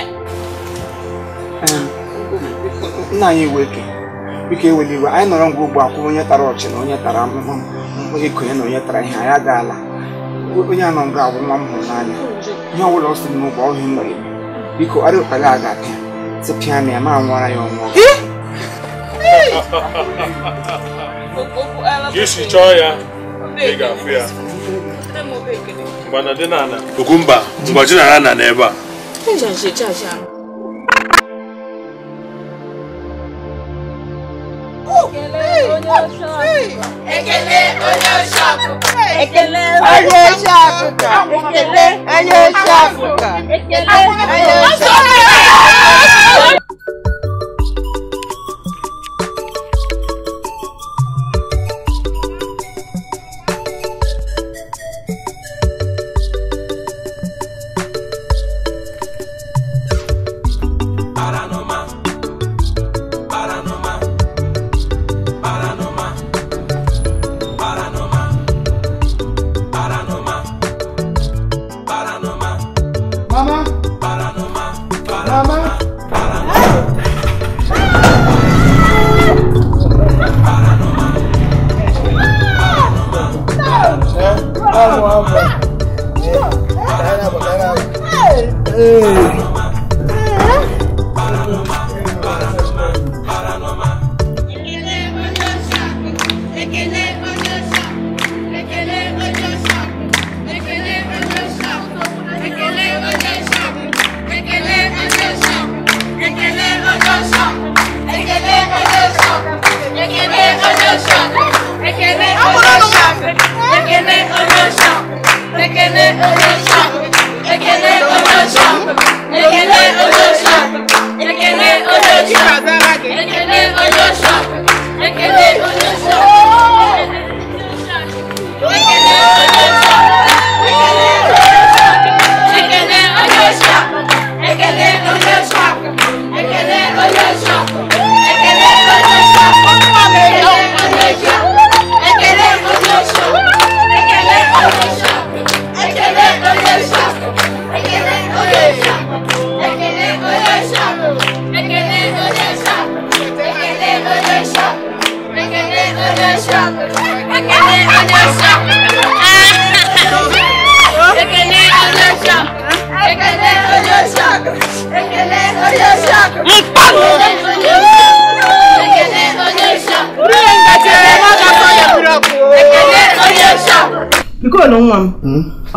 nna anyị weke biko ewela iwe anyị nọrọ ngwa ugbu akwụrụ onye tara ọchị na onye tara ahụhụ onye konye na onye tara ihe anyị agaala onye anọ nga agwụ nwa m hụrụ n'anya ihe ọ bụla ọ sị n'ụgbọ ọhịa nọ ya biko ọrịa ụkpala a ga-apịa tipịa na ya ma nwara ya ọnwụ Jesi chọọ ya ị ga-afụ ya okumba ngwaji nara na n'ebe a Ekele onye oche Afrịka. Ekele onye oche Afrịka. Ekele onye oche Afrịka. Ekele onye oche Afrịka.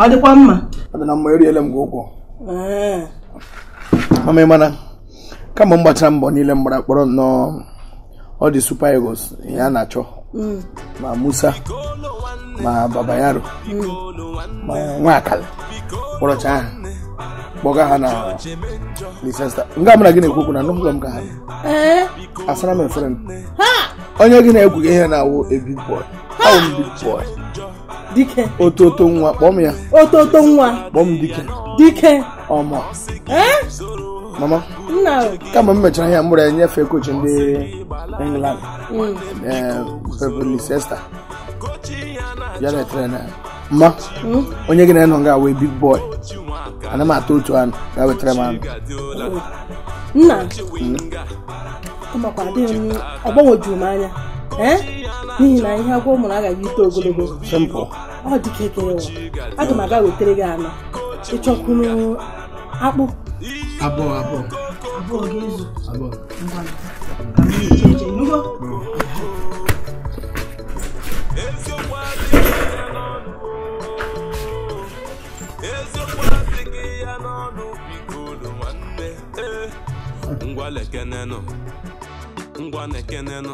ọ dịkwa mma adịna mma eriela m gị ụkwụ mama ịmana kama m gbachara mbọ niile m kpọrọ nnọọ ọ dị super eagles ya na-achọ mm. ma musa ma babayaro mm. ma nwa nwakala kpọrọcha ahụ kpọga ha na lisesta nga mara gị na-ekwu okwu na anụghị m ka ha asara m efere m onye gị na-egwughị ihe na-awụ ebi bọị: awụ m big boy dike ototo nwa kpọm ya ototo nwa kpọm dike dike ọmọ mama kama m mechara ihe ya enyefe kochi ndị england mm. eh, sesta ya na-etere na mma mm. onye gị na-enọ nga wee big boy ana m atọ otu anụ ga wetara m anụ nna ọ m anya ee n'ihi na ihe agwọ mụrụ agaghị ito ogologo ọ dịka ekere ụwa aga m aga wetara gị anọ ịchọkwunu akpụ abụọ abụọ abụọ ga-ezu abụọ ngwa lekenenụ ngwa lekenenụ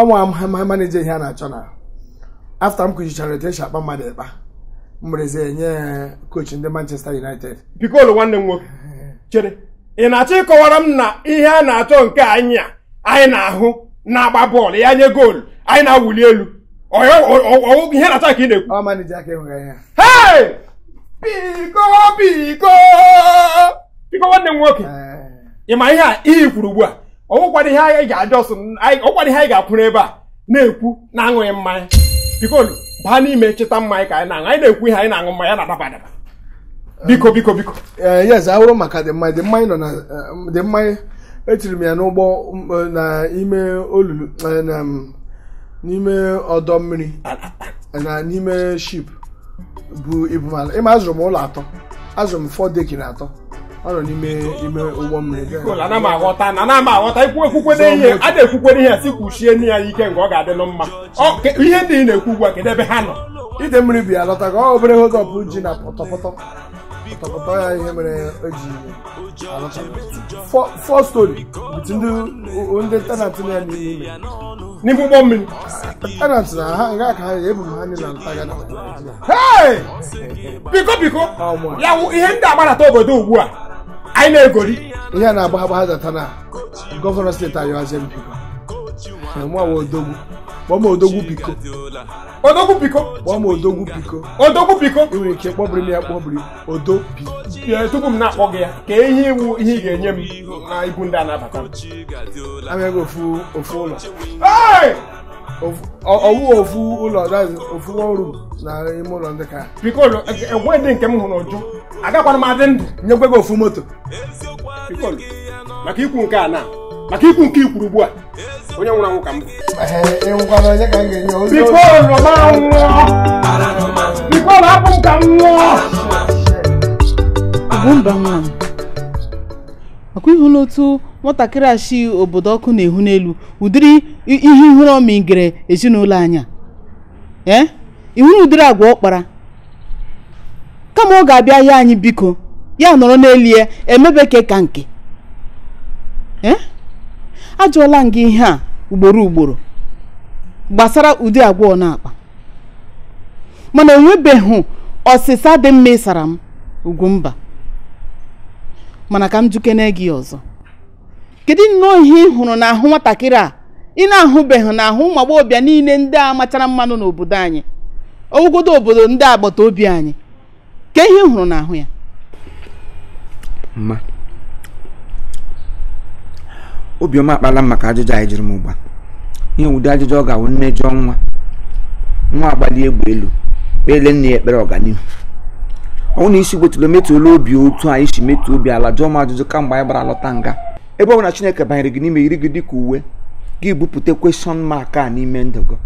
ọnwa ma maneja ihe a na-achọ na afta m kụchichara etu esi akpa mmadụ ịkpa mbereze nye kochi ndị Manchester United Piccolo nwanne m nwoke chere ị na-achọ ịkọwara m na ihe a na-achọ nke anya a anyị na-ahụ na-agba bọọlụ ya nye goolu anyị na-awụli elu ihe na-achọ ka ị na-ekwu biko biko biko nwanne m nwoke ị ma ihe a iyi ikwuru ugbu a ọnwụkwado ihe anyị ga-adọsụ ọkwado ihe anyị ga-akwụrụ ebe a na-ekwu na-aṅụghị mmanya bikolu baa n'ime cheta mmanya ka anyị na-aṅụ anyị na-ekwu ihe anyị na-aṅụ mmanya na-adaba adaba biko biko biko eh, yes awụrụ maka dị mmanya dị mmanya nọ na eh, dị mmanya etiri m ya n'ụgbọ eh, n'ime olulu mm, n'ime ọdọ mmiri na n'ime ship bụ ibumala mala ịma azụrụ m ụlọ atọ azụrụ m fọ atọ ọ nọ n'ime ime ụgbọ mmiri ana m aghọta na ana aghọta ikwu ekwukwere ihe a na-ekwukwere ihe si kwuchie nne ya ike nke ọ ga-adịlụ mma ihe ndị ị na-ekwu ugbu a kedụ ebe ha nọ ide mmiri bi alọta ka ọ obere hotọpụ ji na pọtọpọtọ pọtọpọtọ ya ihe mere o ji alọta fọ stori bụtu ndị ndị tenant na ya n'ime n'ime ụgbọ mmiri tenant na ha nga ka ha ebu m ha niile ntaga na biko biko ya ihe ndị agbarata obodo ugbu a anyị na-egori ihe a na-agba agbagha zata na gọvanọ steeti anyị ọzọ odogwu kpọọ m odogwu biko odogwu biko kpọọ m odogwu biko odogwu biko ị nwere ike kpọbiri m ya kpọbiri odo tupu m na-akpọ gị ya ka ihe iwu ihe ị ga-enye m na ibu ndị a na-abata m ofu ofu ụlọ ọwụ ofu ụlọ ofu ọrụ na ime ụlọ ndị ka biko egwe dị nke m hụrụ ụjụ agakwana m adị ndụ nyekwe gị ofu moto maka ikwu nke a na maka ikwu nke ikwuru ugbu a onye nwụrụ anwụ ka m nwatakịrị achị obodo ọkụ na-ehu n'elu ụdịrị ihe ihere ọmịgere ezinụlọ anya ee ihuru na ụdịrị agwa ọkpara kama ọ ga-abịa ya anyị biko ya nọrọ n'elu ya emebe emebeke ka nke ee ajụọla m gị ihe a ugboro ugboro gbasara ụdị agwa ọ na-akpa mana enwebeghị ọsịsa dị mma ịsara m ugwu mba mana ka m jukene gị ọzọ kedu nnọọ ihe ị hụrụ n'ahụ nwatakịrị a ị na-ahụbeghị n'ahụ ụmụ agbọghọbịa niile ndị a machara mmanụ n'obodo anyị ogodo obodo ndị agbata obi anyị ka ihe ị hụrụ n'ahụ ya mma obiọma akpala m maka ajụjụ anyị jiri m ụgba ihe ụdị ajụjụ ọ ga-awụ mmejọ nwa nwa agbali egbe elu kpele nne ya ekpere ọganihu ọ na isi gbotulu emetụla obi otu anyị si metụ obi ala jụọ m ajụjụ kamgbe anyị gbara lọta nga ebe ọ bụla chineke banyere gị n'ime yiri gị dị ka uwe gị bupụta kweshọn mark a n'ime ndụ gị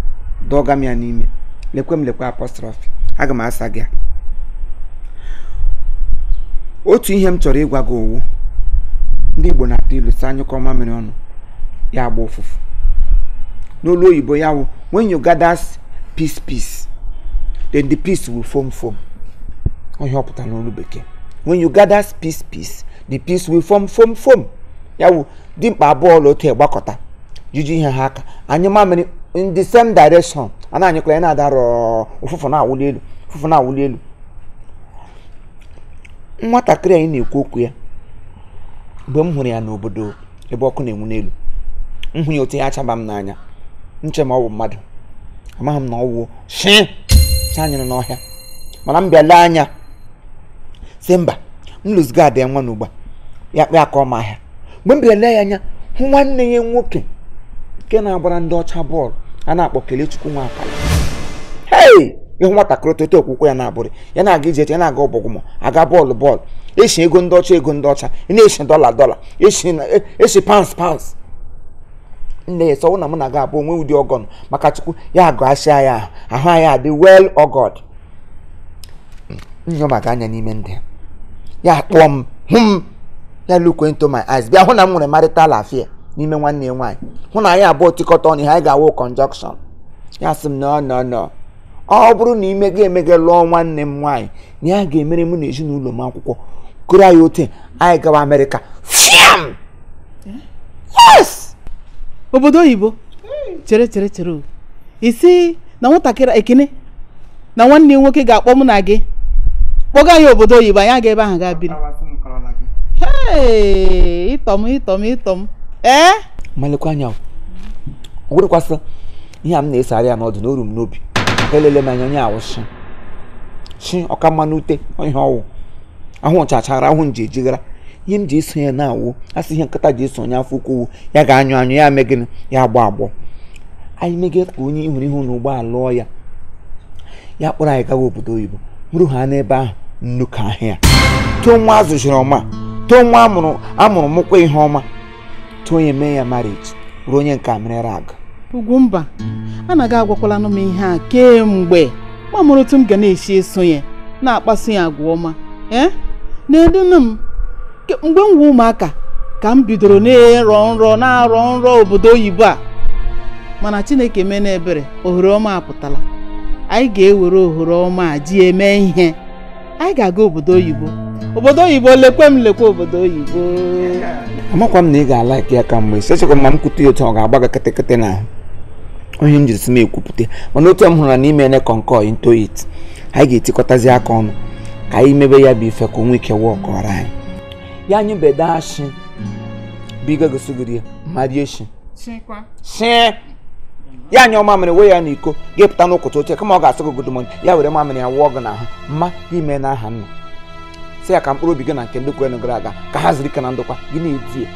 dọga ya n'ime lekwe m lekwe apọstrọfị aga m asa gị otu ihe m chọrọ ịgwa gị owu ndị igbo na-atụ ilu si anyụkọ mamịrị ọnụ ya agba ụfụfụ n'olu oyibo ya wụ wen yu gather peace peace then the peace will form form onye ọ pụtara n'olu bekee when you gather peace peace the peace will form form form. ya wu dimkpa abụọ la otu egbakọta jiji ihe ha aka anyị mamịrị in the same direction ana anyịkwa ya na-adarọ ụfụfụ na-awụli elu ụfụfụ na-awụli elu nwatakịrị anyị na-ekwu okwu ya mgbe m hụrụ ya n'obodo ebe ọkụ na-enwu n'elu m ya otu ya achaba m n'anya nche ma ọ bụ mmadụ amaghị m na ọ wụ shi anyịrị n'ọhịa mana m bịala anya si mba m lụzigo ada ya nwa n'ugba ya kpee aka ọma ahịa mgbe m bịara ya anya hụ nwanne ya nwoke nke na-agbara ndị ọcha bọọlụ a na-akpọ Kelechukwu Nwapala hei ịhụ nwatakịrị toto okwukwe ya na-abụrị ya na-aga ije ya na-aga ọbọgụmọ aga bọọlụ bọọlụ esi ego ndị ọcha ego ndị ọcha e na-esi dọla dọla esi e, e pans pans nne ya sọwụ na mụ na-aga abụ onwe ụdị ọgọn maka chukwu ya agụ asị anyị ahụ ahụ anyị adị wel hmm. ọgọd nyomaga anya n'ime ndị ya kpụọ m hụ m na look into my eyes bịa hụ na m nwere marital affair n'ime nwanne ya nwaanyị hụ na anyị abụọ tikọta ọnụ ihe anyị ga-awụ conjunction ya sị m nọ nọ nọ ọ bụrụ na imega emega lụọ nwanne m nwaanyị na ya ga-emere mụ na ezinụlọ m akwụkwọ kụrụ anyị otu anyị gawa amerịka fiam yes obodo oyibo chere chere chere isi na nwatakịrị ekene na nwanne nwoke ga-akpọ mụ na gị kpọga anyị obodo oyibo anyị aga ebe ahụ gaa biri ịtọ m ịtọm m ịtọ ee malekwa anya werekwasị ihe a m na-esegharị ya n'ọdụ n'oru m n'obi ka elele m anya onye awụsị chi ọka mmanụ ute ihe ọwụ ahụ ọchachara ahụ nji ejighara ihe m ji eso ya na-awụ asị ihe nkịta ji eso onye afọ ukwu ya ga-anyụ anyụ ya mee gịnị ya agbọ agbọ anyị megide ka onye hụrụ ihu na ụgbọala lụọ ya ya kpọrọ anyị gawa obodo oyibo hụrụ ha n'ebe ahụ nnukwu ahịa tụọ nwa azụ ọma too nwa amụrụ amụrụ mụkwa ihe ọma too onye mee ya marriage ruo onye nke merere agụ Ugwumba anaghị agwakwalanụ m ihe a kemgbe mamụrụtụ m ga na-esi eso ya na-akpasu ya agwa ọma ee na-edunu m mgbe m nwe ụmụaka ka m bidoro na-erọ nrọ na-arọ nrọ obodo oyibo a mana Chineke mee ebere ohere ọma apụtala anyị ga-ewere ohere ọma a ji eme ihe anyị ga-aga obodo oyibo obodo oyibo lekwe m lekwe obodo oyibo amakwa m na ị ga-ala ya ka mgbe sechekwa echekwa ma m kwute ya otu ọ ga-agba gị kịtịkịtị na onye m jiri si ekwupụta mana otu m hụrụ na ime ene kọnkọ into it anyị ga-etikọtazi aka ọnụ ka anyị mebe ya bụ ife ka onwe nwee ike wụọ ọkọrọ anyị ya anyị bede ashị bigo gosogiri mmadụ echi shie ya anya mamịrị ya n'iko ga-epụta n'ụkọta oche kama ọ ga asị gị godomon ya were mamịrị ya wụọ gị n'ahụ mma ime na aha nna si ya ka mkpụrụ obi gị na nke ndị kwere gara aga ka ha ziri ike na ndokwa gị na-eti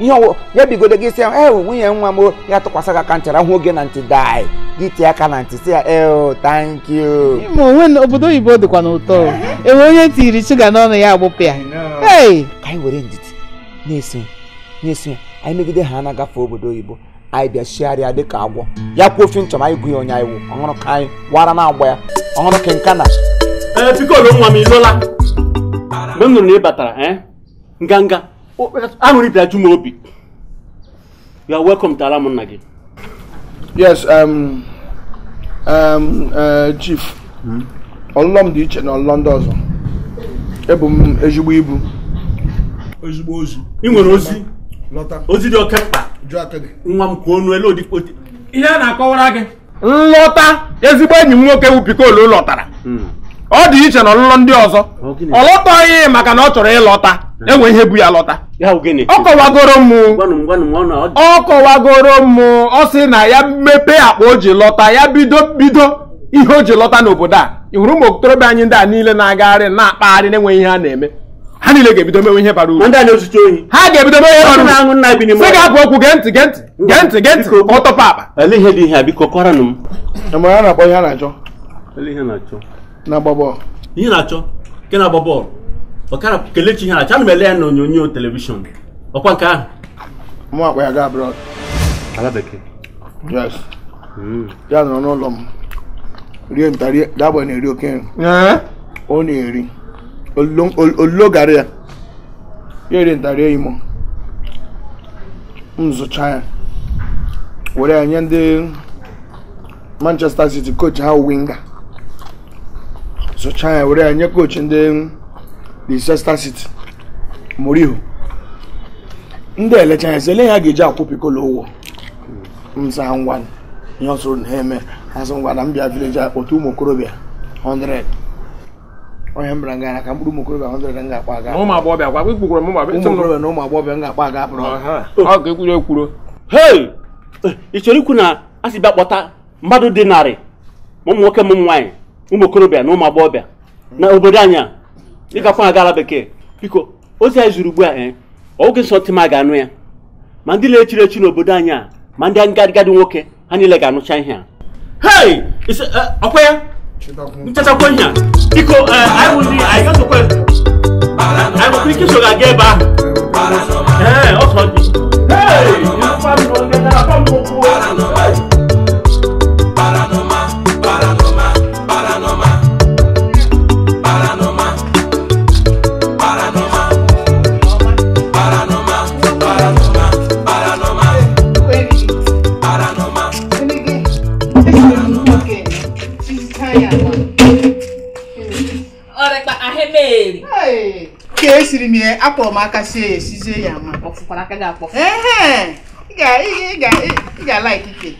ihe ọwụ ya bigodo gị si ya e nwunye nwa m ya tụkwasị gị aka ntị rahụ oge na ntị dai gị tie aka na ntị si ya eo thank you ma onwe obodo oyibo dịkwa n'ụtọ enwe onye tiri shuga n'ọnụ ya agbụpụ ya ka anyị were ndidi na-eso na-eso ya anyị megide ha na-agafe obodo oyibo anyị bịa chigharịa dịka agwọ ya kwuo ofe nchọm anyị gụghị onye anyị wụ ọhụrụ ka anyị wara na agba ya ọhụrụ ka nka na pikolo nwa m ịlụla mgbe m nụrụ na ị batara eh, nganga aṅụrị bịara ju m obi you are welcome to ala nna gị yes um, um, uh, chief hmm? ọlụlọ m dị iche na ọlụlọ ndị ọzọ ebu m ezigbo ibu ezigbo ozi ị nwere ozi ozi dị oke mkpa nwa m kwuo onu elu ihe a na-akọwara gị nlọta ezigbo enyi m nwoke bụ pikolu tara. Hmm. ọ dị iche na ọlụlọ ndị ọzọ ọ lọtaghị maka na ọ chọrọ ịlọta hmm. enwe ihe bụ ya lọta ọ kọwagoro m ọ kọwagoro m ọ sị na ya mepe akpa o ji lọta ya bido bido ihe o ji lọta n'obodo a ị hụrụ ụmụ okorobịa anyị ndị a niile na-agagharị na-akpagharị na-enweghị ihe a na-eme ha niile ga-ebido mewe ihe bara uru ha ga-ebido mewe ihe bara uru sị ga-abụ okwu gee ntị gee ntị gee ntị gee ntị ka ọ tọpụ akpa na-agba bọọlụ ihe na-achọ nke na-agba bọọlụ ọkara kelechi ihe na-achọ ana m ele ya na onyonyo telivishọn ọkwa nke ahụ mụ akpa ya gaa abroad ala yes hmm. ya nọrọ n'ụlọ m rie nta rie dagba na-eri oke nri ọ na-eri olilo gara ya ya eri ntarie imo m zụcha ya were ya nye ndị Manchester City coach ha winga sụchaa ya were mm, ya nye kochi ndị Leicester City Mourinho ndị elecha ya sele ele ha ga-eji akwụ pikolo ụgwọ nsa ngwa ihe ọsụrụ na eme ha sị ngwa na mbịa village otu ụmụ okorobịa 100 onye mbara nga na ka mkpụrụ ụmụ okorobịa 100 m ga-akpa aga ụmụ agbọghọbịa kwa kpụkwukwara ụmụ agbọghọbịa na ụmụ agbọghọbịa m ga-akpa aga apụrụ ọ ga-ekwuru ekwuru hei ị chọrọ ikwu na a sị bịa kpọta mmadụ dị narị ma ụmụ nwoke m nwaanyị ụmụ okorobịa na ụmụ agbọghọbịa na obodo anyị a ịgakwa bekee biko ozi anyị zuru ugbu a ee eh, oge nsọ ma ga-anụ ya ma ndị na-echiri echi n'obodo anyị a ma ndị ngadi nwoke ha niile ga-anụcha ihe a hei eh, ya nchetakwa ihe ga-aga ọsọ dị ka esiri m ya akpọrọ m aka sie ya esizie ya ma ị ga-ala ikike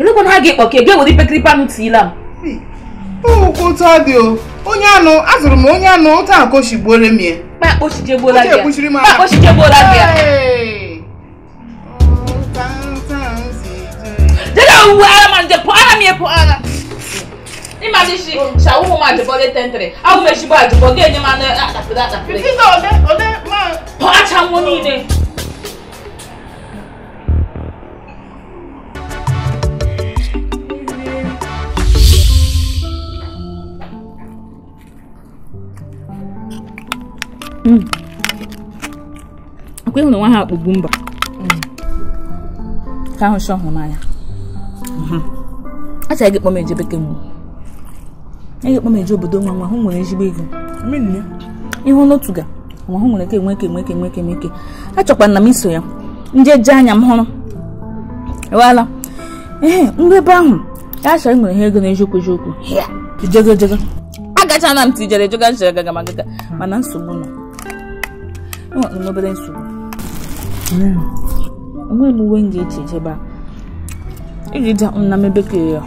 elekwana ha ga-ekpọ ka ebe were ipekiripe tiila m ụkwụ ụtọ dị onye anụ azụrụ m onye anụ ụtọ akụ shigbuore m ya bó ṣe jẹ́ bó lágbè bó ṣe jẹ́ bó lágbè. dídá òwú ara máa ń jẹ pọ́n ara mi yẹ pọ́n ara. ní màá ní ṣe ṣàwọ́ mo máa jẹ̀bọ́ lé tẹ́ntẹ̀rẹ̀ àwọn èsì bá àjẹbọ́ gé ẹni máa ná àtàkùn àtàkùn. fífi sọ ọdẹ ọdẹ máa. pọ́n àtàwọn ní ilé. Mm. akwa ịhụ na nwa ha akpụgbu mba mm. ka ahụ shọ hụrụ n'anya mm-hmm. achọghị gị kpọm eje bekee mgbe eghị kpọm eje obodo nwa nwa hụ nwere ezigbo ego ịhụ n'otu ga nwa hụ nwere ka enweke enweke enweke enweke achọkwa na m iso ya ndị njeje anya m hụrụ ewala ee ndị ebe ahụ ya achọrọ nwere ihe ego na eziokwu eziokwu jego jego na m tijere ejega jere gaga magaga hmm. mana nsogbu nọ enwere obere nsogbu enweghị m m na ya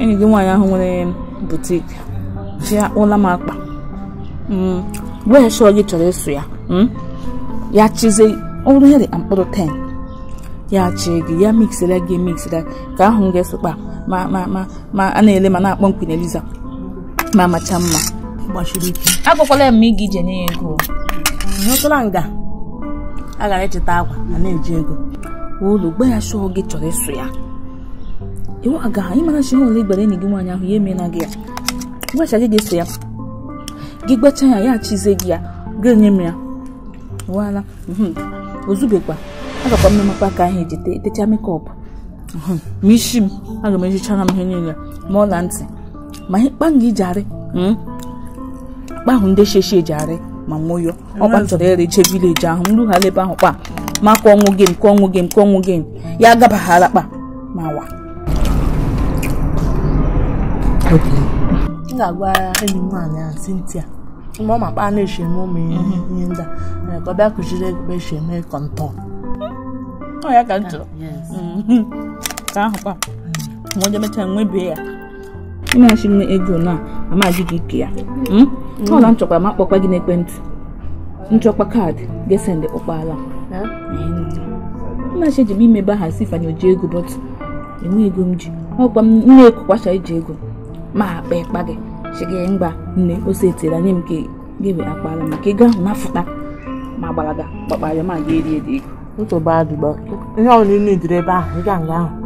enyi gị nwaanyị ahụ nwere butik ji akpụla m akpa mm, wee shọ gị chọrọ eso ya mm, ya chize ọrụ ya dị mkpụrụ 10 ya chee gị ya miksera gị emiksera ka ahụ m ga kpa ma a na-ele ma na-akpọ mkpi eliza ma macha mma ya ma ị ga ije nye ego hụtụla nga agara echeta akwa na na-eji ego ụlọ gba ya shọọ gị chọrọ ịsụ ya iwu aga anyị mara chi ụlọ igbara enyi gị nwaanyị ahụ ya emela gị ya gbacha gị ga ya gị gbacha ya ya achize gị ya gị enye m ya wala mhm. ozubekwa agakwa m mmepe aka ahụ ejite techa mekọp mhm. ma isi m aga m ejichara m ihe niile ma ọla ntị ma ihe kpa m ga iji arị mhm. kpa ahụ ndị sheshi eji arị ma nwụyọ mm. ọkwa m chọrọ ere jee vileji ahụ m rughala ebe ahụ kpa ma ka ọnwụ gem ka ọnwụ gem ka ọnwụ gem ya agabaghara kpa ma wa m ga-agwa enyi m nwaanyị a Cynthia mgbe ọ ma kpa na-eche eme ụmụ mhm. ihe ndị a eh, ka ọ bịa kụziri ego eche eme kọntọn ọ ya ka m ah, chọrọ mm-hmm. ka ahụ kpa mm. ma onye mechaa nwebie ya na-achị m ego na amaghị gị ike ya hmm? hmm. ọla nchọkwa ma kpọkwa gị n'ekwentị nchọkwa kaadị gesendị kpọkpala nnachi eji m imebe aha si ifanye oji ego bọtụ enwe ego m ji ọkwa m na-ekukwacha iji ego ma akpa ịkpa gị gị mgba nne ose etira nye m ka gebe akpala maka ego ahụ na-afụta ma gbalaga ga gbakpara ma ga eri ego ihe ọrụ niile dịrị ebe ahụ ịga nga ahụ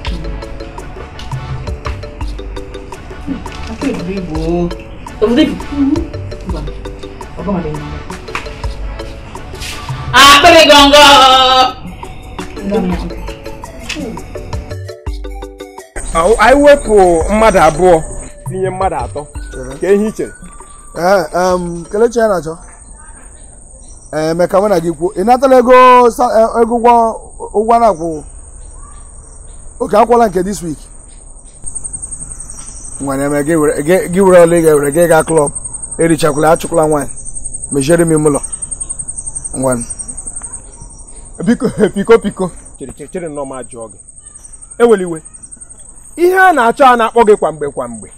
Vivo. Vivo. Ọgbọ́n mi ni. Àpẹẹrẹ gọ̀ngọ̀. Anyị wepụ mmadụ abụọ tinye mmadụ atọ ka ihe i chere. Kelechi ya na-achọ. Emeka mụ na gị kwuo, ị natala ego this week? nwere eme gị were ọla ị ga gị gaa klọb erichakwala achụkwala nwanyị meziere m ime ụlọ e piko piko chere nọ m ajụọ gị eweli iwe ihe a na-achọ a na-akpọ gị kwamgbe kwamgbe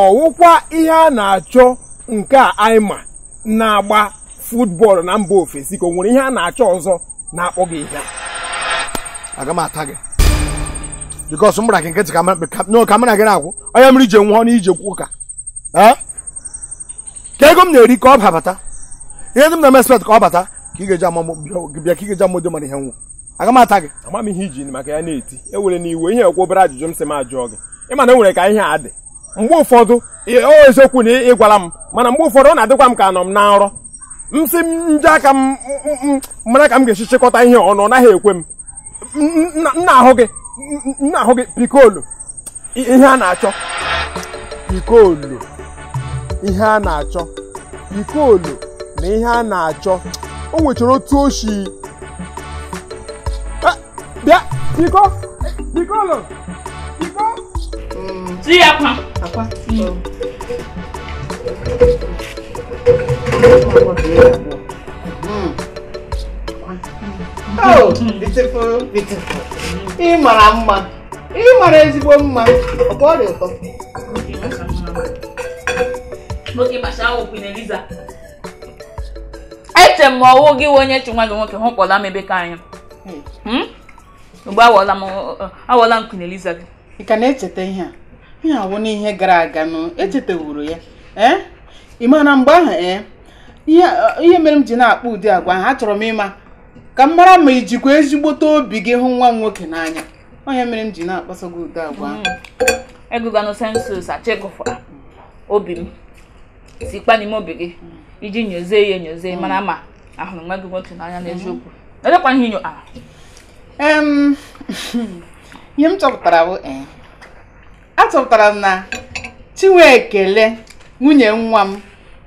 ọwụkwa ihe a na-achọ nke a anyị ma na-agba futbọọlụ na mba ofesi ka o nwere ihe a na-achọ ọzọ na-akpọ gị ihe a aga m ata gị bikos m gbara gị nkịtị kamera gị na-akwụ onye mri ije nwụọ na ije kwụ ụka ka ego m na-eri ka ọ babata ihe dị m na-eme spet ka ọ bata ka ị ga-eji amụdo mara ihe nwụ aga mata ata gị ama ihe iji maka ya na-eti ewere na iwe ihe ekwu obere ajụjụ m si m ajụọ gị ma na enwere ka ihe adị mgbe ụfọdụ o eziokwu na ị gwara m mana mgbe ụfọdụ ọ na-adịkwa m ka anọ m na nrọ m sị m nje aka m mara ka m ga-esi chịkọta ihe ọ ọ naghị ekwe m m na-ahụ gị nna ahụ gị pikolo ihe a na-achọ pikolo ihe a na-achọ pikolo na ihe a na-achọ o nwechara otu oshi eh, bịa piko pikolo piko ji Mm. Oh, mm. beautiful, beautiful. Ị mara mma. Ị mara ezigbo mma. Ọ bụ ọrịa ụtọ. Eche m ọwụ gị onye chi nwa gị nwoke hụkpọla m ebe ka anyị Mgbe hmm? hmm? awọla m Queen Eliza gị. Ị ka na-echeta ihe a? Ihe awụ n'ihe gara aga nụ, echetewuru ya. Ee? Eh? Ị mara mgbe ahụ ee? Eh? Eh, ihe mere m ji na akpụ ụdị agwa ha chọrọ m ịma ka m mara ma ijikwa ezigbote obi gị hụ nwa m nwoke n'anya onye mere m ji na-akpaso gị ụdị agwa mm. egụganụ sensus achịgụfụra obi m sikwa n'ime obi gị mm. iji nyozie ya enyozie mm. mana ma ahụrụ nwa gị nwoke n'anya n'eziokwu edekwa ihe inyo a ihe m chọpụtara bụ eh, a chọpụtara m na Chinwe ekele nwunye nwa m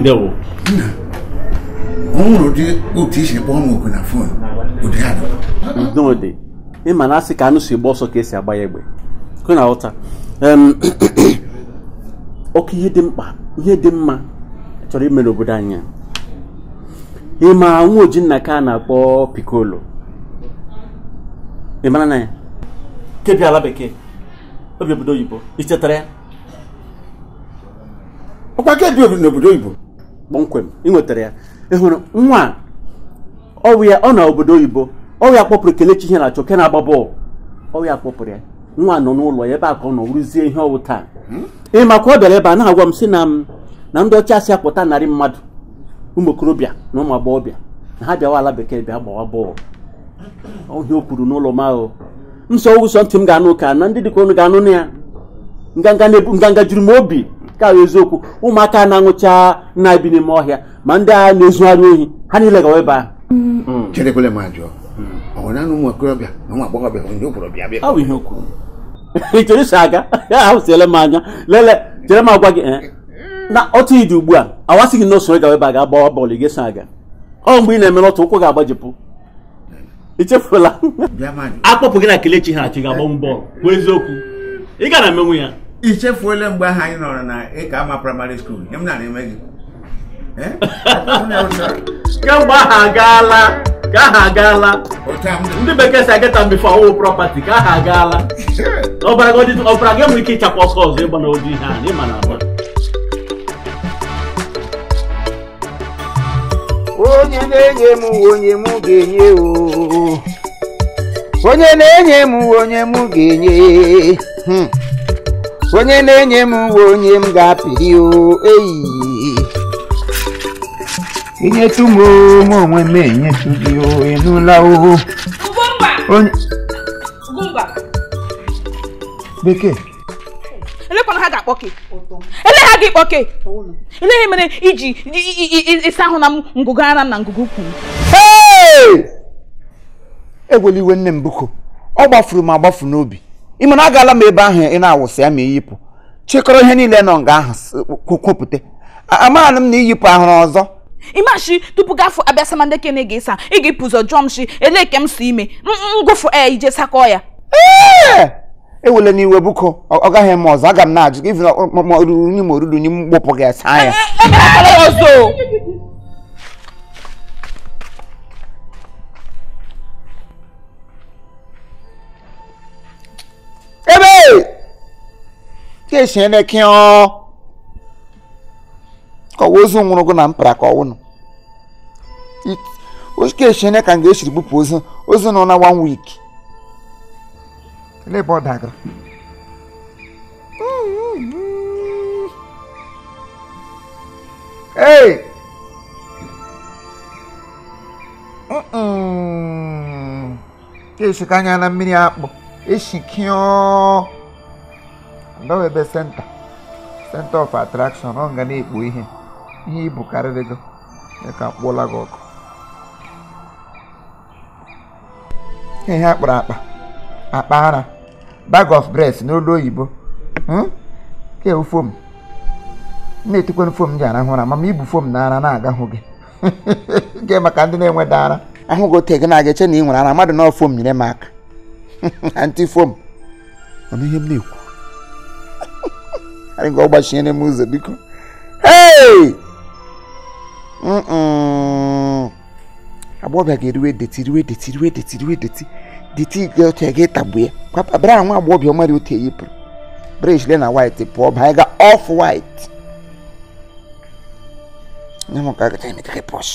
ndewo ọ dị ụdị otu isi kpọọ m oku na fon ụdị ya dị udodị ịma na asị ka anụ si gba ọsọ ka esi agba ya egbe kụ na ụta ọkụ ihe dị mkpa ihe dị mma chọrọ ime n'obodo anyị ịma nwa oji nna ka a na-akpọ pikolo ị mara na ya kebia ala bekee obi obodo oyibo ichetara ya ọkwa kebi n'obodo oyibo kpọmkwem ị nwetara ya ị hụrụ nwa ọwụ ya ọ na obodo oyibo ọwụ ya kpọpụrụ kelechi ihe na-achọ ke na-agba bọọlụ ọwụ ya kpọpụrụ ya nwa nọ n'ụlọ ya ebe a ka ọ nọ rụzie ihe ọwụ taa hmm? ị maka ọ bịara ebe a na-agwa m si na m na ndị ọcha si apụta narị mmadụ ụmụ okorobịa na ụmụ agbọghọbịa na ha bịawa ala bekee bịa gbawa bọọlụ ọhịa o kwuru n'ụlọ m ahụ m so ntị m ga-anụ ka na ndị dịka ga-anụ na ya nganga juru m obi ka eziokwu ụmụaka na-aṅụcha na-ebi n'ime ọhịa ma ndị agha na-ezugharị ohi ha niile gawa ebe ahụ aga ahụsiele m anya lele m agwa gị eh, na otu ịdị ugbu a awasị gị na gawa ebe a ga-agbawa bọọlụ aga ọ mgbe ị na-emere otu ụkwụ ga-agbajipụ ichefula akpọpụ gị na kelechi ha achị ga-agbanwe bọọlụ bụ eziokwu ị ga na i chefuola mgbe ahụ anyị nọrọ na ịka ama praịmarị skuul nye m na na-eme gị kemgbe ahụ agaala ka aha agaala ndị bekee si agata ageta mbefe ọwụ propati ka aha agaala ọbara gị ọbara nwere ike ịchakwa ọsọ ọzọ ịgba n'oji ihe ahụ ịma na abụọ onye na-enye m onye m ga-enye onye na-enye m onye m ga-enye hmm. onye na-enye m uwe onye m ga-apịrị o eyi inyetụ m m onwe m enyetụ gị o ịnụla o onye bekee elekwana ha ga-akpọ gị ele ha gị kpọke eleghị mere iji ịsa ahụ na m ngụgụ ara m na ngụgụ ukwu m egweliwe nne m biko ọ gbafuru m agbafu n'obi ime na agaala m ebe ahụ ị na-awụsị ya ma iyipụ chịkọrọ ihe niile nọ nga ahụ kwupụta amaghana m na iyipụ ahụrụ ọzọ imashi tupu gafụ abịasama ndị kene ga-esa ị ga-epụzọ jụọ m shi ke m so ime ngụfụ e ije sakọ ya ee ewele n'iwe buko ọ gaghị eme ọzọ aga m na-ajụ gị ruru n'ime oruru n'ime mgbopụ ga-asa ya ebe que esi ene ki ọ ka ọwa ozu nwụrụ gụ na mpara ka ọwụnụ que esi ene ka m ga-esiri ozu na one week ele ebe ọ Ei! Uh -uh. Ka esi ka na mmiri akpụ eshikio ndawa ebe senta senta of attraction ọ nga na-ekpo ihe ihe ibu karịrị gị ka mkpụla gị ọkụ ihe kpọrọ akpa akpa ara bag of breath n'olu oyibo ke fom na fom ji arahụ ụra mama ibu fom na ara na-agahụ gị nke maka ndị na-enweda ara ahụ gị ote gị na-aga na ị nwere ara mmadụ na nyere m aka antị fom ọnụ ihe m na-ekwu anyị ga ọgbachinyere m ụzọ biko hey agbọghọbịa ga-eriwe deti riwe deti riwe deti riwe deti deti ga otu ga ịtagbu ya papa bra nwa agbọghọbịa ọmara otu pụrụ breshile na white pụọ ba anyị ga ọf white nye m ka aga taịmị kakị pọsh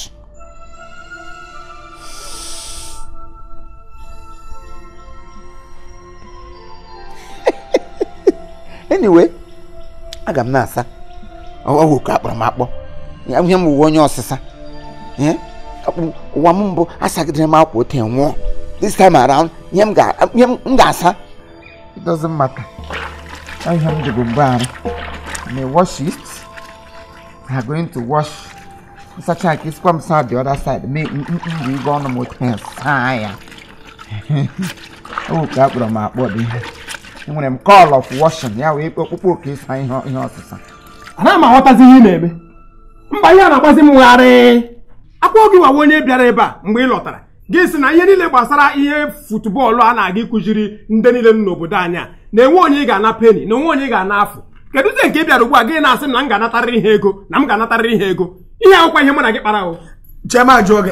anyway aga m na-asa ọwụ ka akpọrọ m akpọ ihe m ụwa onye ọsịsa ụwa m mbụ asagidere m akwa ote nwụọ this time around ihe m ga-asa it doesn't matter ihe m dịbụ mgbe arụ wash it ha going to wash nsacha nke isikwa m sa the other side ọnụ m otu ya saa ya akpọrọ m akpọ dị enwere m call of washing ya wee okpukpe oke ịsa ihe ọsịsa anaghị m aghọtazi ihe ị na-eme mba ihe a na-agbazi m nwegharị. akwụkwọ gị nwawa onye bịara ebe a mgbe ị lọtara gị si na ihe niile gbasara ihe futbọọlụ a na-aga ịkụziri ndị niile m n'obodo anyị a na-enwe onye ị ga-ana peni na onwe onye ị ga-ana afụ kedu nke ị bịara ugbu a gị na-asị na m ga-anatarịrị ihe ego na m ga-anatarịrị ihe ego ihe akwụkwọ ihe mụ na gị kpara ahụ chema jụọ gị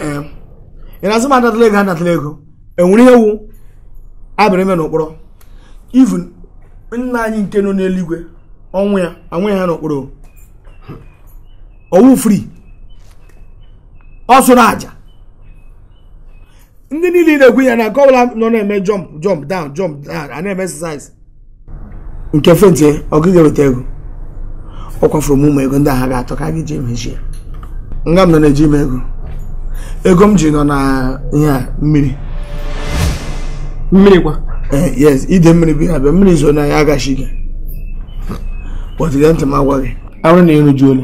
ị na-asị m anatala ego anatala ego enwere ihe wu abịrị ime even nna anyị nke nọ n'eluigwe ọnwụ ya anwụ ha n'okporo owu free ọ sụrụ aja ndị niile na-ekwu ya na nke ọbụla nọ na-eme jump jump down jump down a na-eme exercise nke fentie ọ gịghị ego ọ kwafuru m ụmụ ego ndị agha ga atọ ka gị jee mechie nga m nọ na-eji m ego ego m ji nọ na ihe a mmiri mmiri kwa Eh, yes ide mmiri bụ mmiri zoo n'anya agachi gị kpọtụrụ ntị gị arụ na ịrụju ole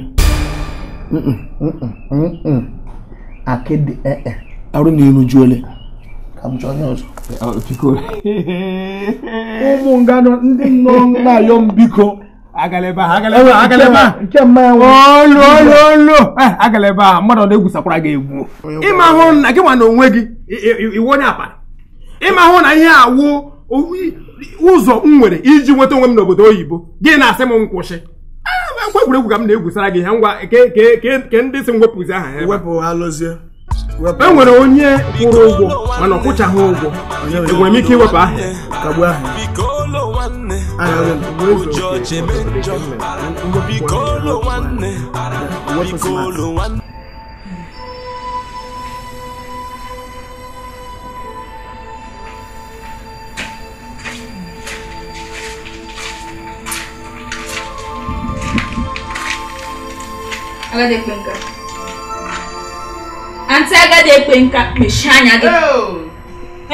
akịdị ee eh, eh. arụ na ịrụju ole ka m chọọ onye ọzọ ụmụ nganụ ndị nọ na-ayọ m biko agalebe a mmadụ na-egwusakwara gị egwu na gị na onwe gị iwe onye ịma na ihe ụzọ m nwere iji nweta onwe m n'obodo oyibo gị na-asị m nkwụsị akwa ah, egwuregwu ka m na-egwusara gị ha ngwa ke ndị si anyị aha ya e nwere onye kwụrụ ụgwọ mana ọ ụgwọ enwere e m ike iwepụ aha ya agadi ekwe nka nka mechie anya gị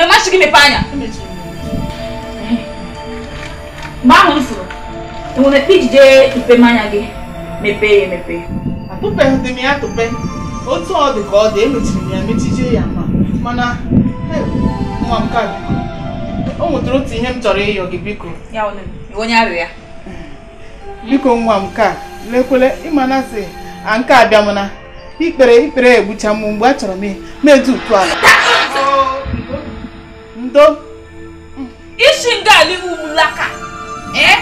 emachi oh! gị mepe anya mgbe ahụ m fụrụ enwere ekpe ijide mpemanya gị mepee ya emepe m ya tụpe otu ọ ka ọ dị emechiri m ya ya ma mana nwa m ka o nwetara otu ihe m chọrọ ịyọ gị biko onye m ka nke abịa m na ikpere ikpere egbucha m mgbe achọrọ m medu utu ala ndo isi ngali umulaka eh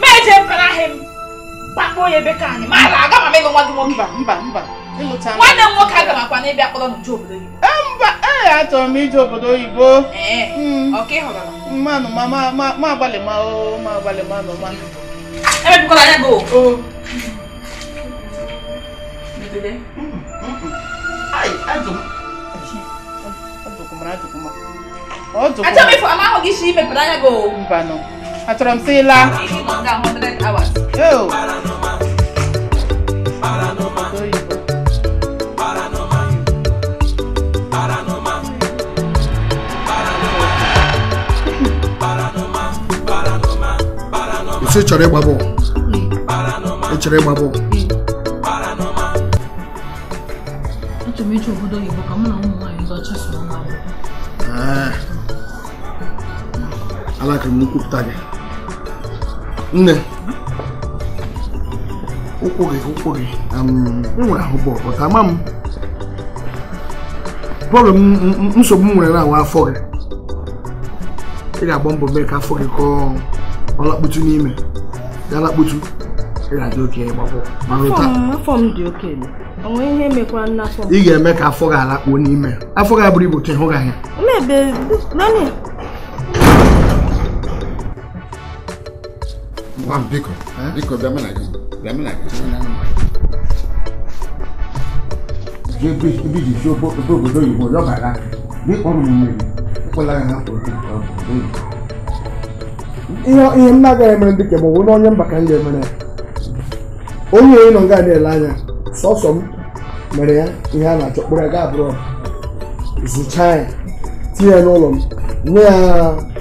meje mparahim kpakpo ya ebe ka anyị mara aga ma mego nwa gị nwoke mba mba mba nwanne m nwoke aga makwa na ịbịa kpọrọ n'ụjọ obodo oyibo eh, mba ee eh, achọrọ m ije obodo oyibo eh, mmanụ hmm, ma ma agbalị ma o ma agbalị ma nọ ma emebikwala anya gị o gida mm, mm, mm. ai ajum ajukuma ajukuma ajukuma achọ mefu ama ahụghị shi mepụrụ anya gị o mbanụ achọrọ m sị ịla ị chọrọ ịgba bọọlụ ị chọrọ ịgba bọọlụ tomato obodo oyibo ka mụ na ụmụ nwaanyị ndị ọcha so nwa alakịrị m nkwupụta gị nne ụkwụ gị ụkwụ gị enwere ahụ bọl bọta ama m bọọlụ nsogbu m nwere na-awa afọ gị ị ga-agba mbọ mee ka afọ gị kọọ ọlakputu n'ime ga lakputu ị ga-eme ka afọ gị alakpuo n'ime afọ gị abụrụ ibu ka ịhụ gị anya biko biko bịa mụ na gị bịa mụ na gị ebe ihe na emere onye mba ka m ga-emere onye onye nọ nga na-ele anya sọsọ m mere ya ihe a na-achọ kpụrụ ga abụrọ zụchaa ya tinye ya n'ụlọ m nye ya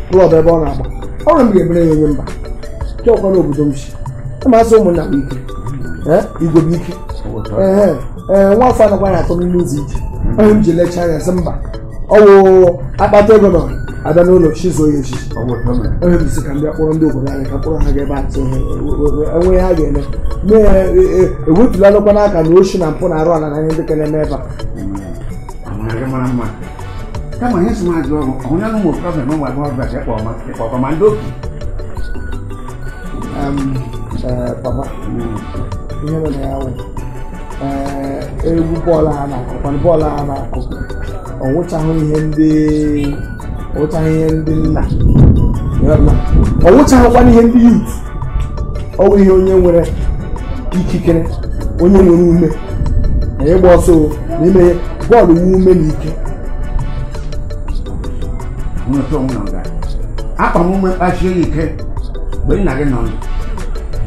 klọb ebe ọ na-agba ọrụ m ga-ebere ya onye mba chọkwa obodo m si masị ụmụnna m ike igwe m ike ee nwa afọ anakwa na atọ n'ime ụzọ ije onye m ji lechaa anya sị mba ọwụ akpata ego nọ abịa n'ụlọ chi zuo ya echi emebisi ka ndị akpọrọ ndị obodo anyị ka kpọrọ ha ga ebe atụ e, e, e, enweghị ha ga-eme mee ya ewepụla lụkwa n'aka na ochi na mpụ na-arụ ala na ndị ka na-eme ebe a egwu bọọlụ ha na-akụ bọọlụ ha na ọ nwụchahụ ihe ndị ọwụchaghị ihe ndị nna ọ wụchaghịkwana ihe ndị yut ọ bụ ihe onye nwere ikikere onye nwere ume na ịgba ọsọ n'ime bọọlụ nwe ume na ike akpa m ume kpachie ya ike mgbe nna gị nọ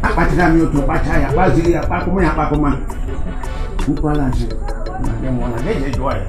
akpachara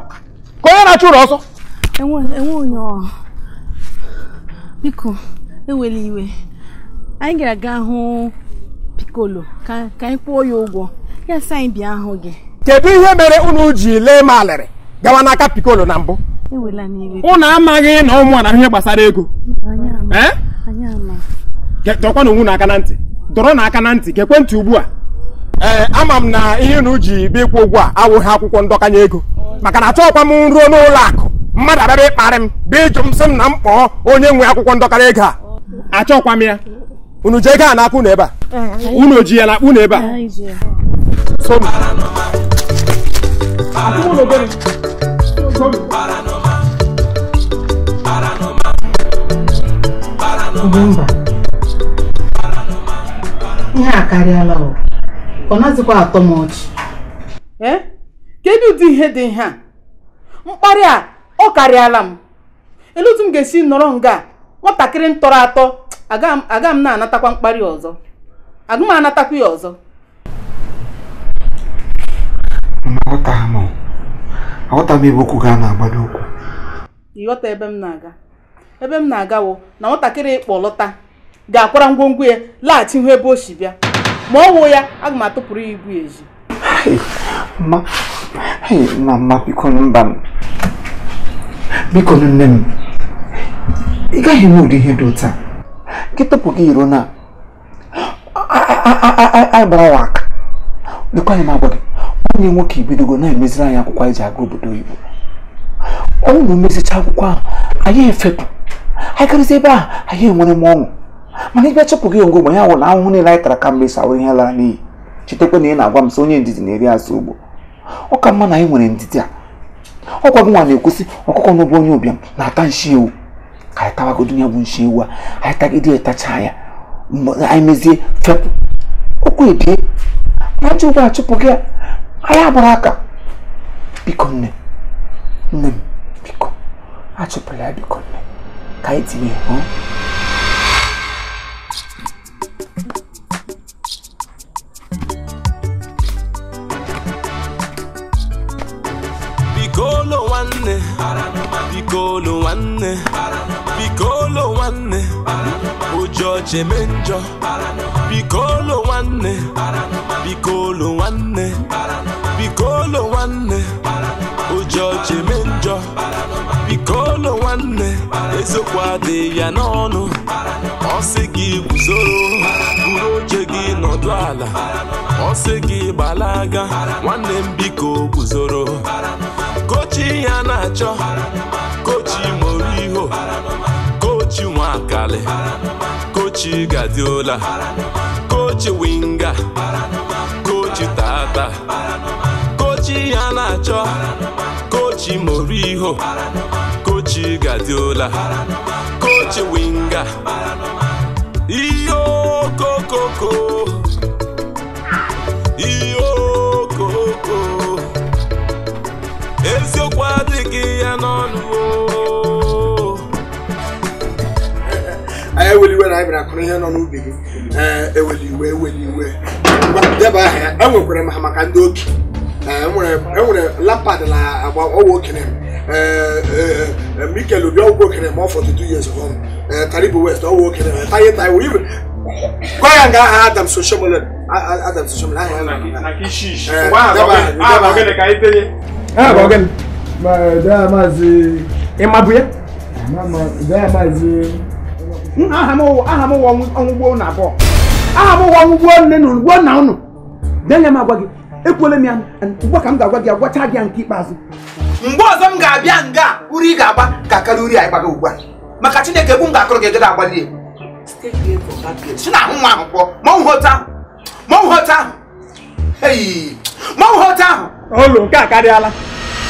ụlọ ọsọ enwe onye biko ewela iwe anyị ga-aga hụ pikolo ka anyị kwụọ ya ụgwọ ya sị anyị bịa hụ gị kedu ihe mere unu ji lee malịrị gawa n'aka pikolo na mbụ ụnụ amaghị na ụmụ na ihe gbasara ego dọkwa n'onwe na aka na ntị dọrọ na aka na ntị ka ekwentị ugbu a ee ama m na ihe unu ji bịa ịkwụ ụgwọ a awụghị akwụkwọ ndọkanye ego maka na achọghịkwa m nruo n'ụlọ akụ mmadụ abịaba ịkparị m bụ ịjụ m sị m na m kpọọ onye nwe akwụkwọ ndọkara ego a achọkwa m ya unu ji ego a n'aka unu ebe a unu ji ya na unu ebe a mba ihe a karịala ọ naghịzikwa atọ m ọchị eh? kedu ụdị ihe dị ihe a mkparị a ọ karịala m elu m ga-esi nọrọ nga nwatakịrị m tọrọ atọ aga m na-anatakwa mkparị ọzọ aga m anatakwa ya ọzọ ebe okwu ga na-agbado okwu ịghọta ebe m na-aga ebe m na-agawo na nwatakịrị ịkpọ lọta ga-akwara ngwongwo ya laghachi hụ ebe o si bịa ma ọ wụ ya aga m atụpụrụ ya ibu ya ezi Hey, mama, biko mba m. Biko nne m. Ị gaghị enwe ụdị ihe dị a. Gị tọpụ gị iro na agbara wa aka. Dịkwa anyị m agwa gị, onye nwoke ibidogo na-emeziri anyị akwụkwọ anyị ji aga obodo oyibo. Ọnwụ na omezicha akwụkwọ ahụ, anyị efepụ. Anyị karịsịa ebe ahụ, anyị enwere m ọṅụ. Mana ị bịa chụpụ gị ngwogbo ya wụrụ ahụhụ niile anyị tara kamgbe ịsa ahụ ihe lara n'iyi. Chetakwa na ị na-agwa m sị onye ndidi na-eri azụ ugbo. ọ ka mma na anyị nwere ndidi a ọkwa gị nwa na-ekwesị ọkụkọ n'ụbụ onye ụbịam na-ata nshi ewu ka anyị tawagodo ya bụ nshi ewu a anyị tagide etacha ya anyị mezie fepụ ụkwụ ebie ajọ ụgbọ achụpụ gị anyị agbara aka biko nne nne m biko achụpụla ya biko nne ka anyị tinye nwanne biko olu nwanne biko olu nwanne ụjọ cheme njọ biko olu nwanne biko olu nwanne biko olu nwanne ụjọ cheme njọ biko olu nwanne ezokwadị ya n'ọnụ ọsị gị guzoro buru oche gị nọdụ ala ọsị gị gbalaga nwanne m biko guzoro kochi ya na-achọ kochi moriho kochi nwakali kochi gadiola kochi winga kochi tata kochi ya na-achọ kochi moriho kochi gadiola kochi winga iyo kokoko eweli iwe na anyị bịara kụrụ ihe nọ n'ubi gị eweli iwe eweli iwe deba aha enwekwara m ha maka ndị oke enwere lapad na agba ọgwụ okere mikel obi ọgwụ okere ma ọ fọdụ two years ago karibu west ọgwụ okere taye taye wee gwa ya nga aha adam soshomole adam soshomole aha ya na deba aha deba aha ị mabụ ya aha m ụwa ọnwụgbo na abụọ aha m ụwa ọnwụgbo nne na ugbo nna ụnụ denya m agwa gị ekwele m ya ugbu ka m ga-agwa gị agwacha gị ya nke ikpeazụ mgbe ọzọ m ga-abịa nga uri ị ga-agba ka karịa uri a gbaga ugbu a maka chineke bụ m ga-akọrọ gị egede agbali si na ahụ nwa ahụ kpọọ mọnwụ hote ahụ mọnwụ hote ahụ mọnwụ hote ahụ olu nke a karịala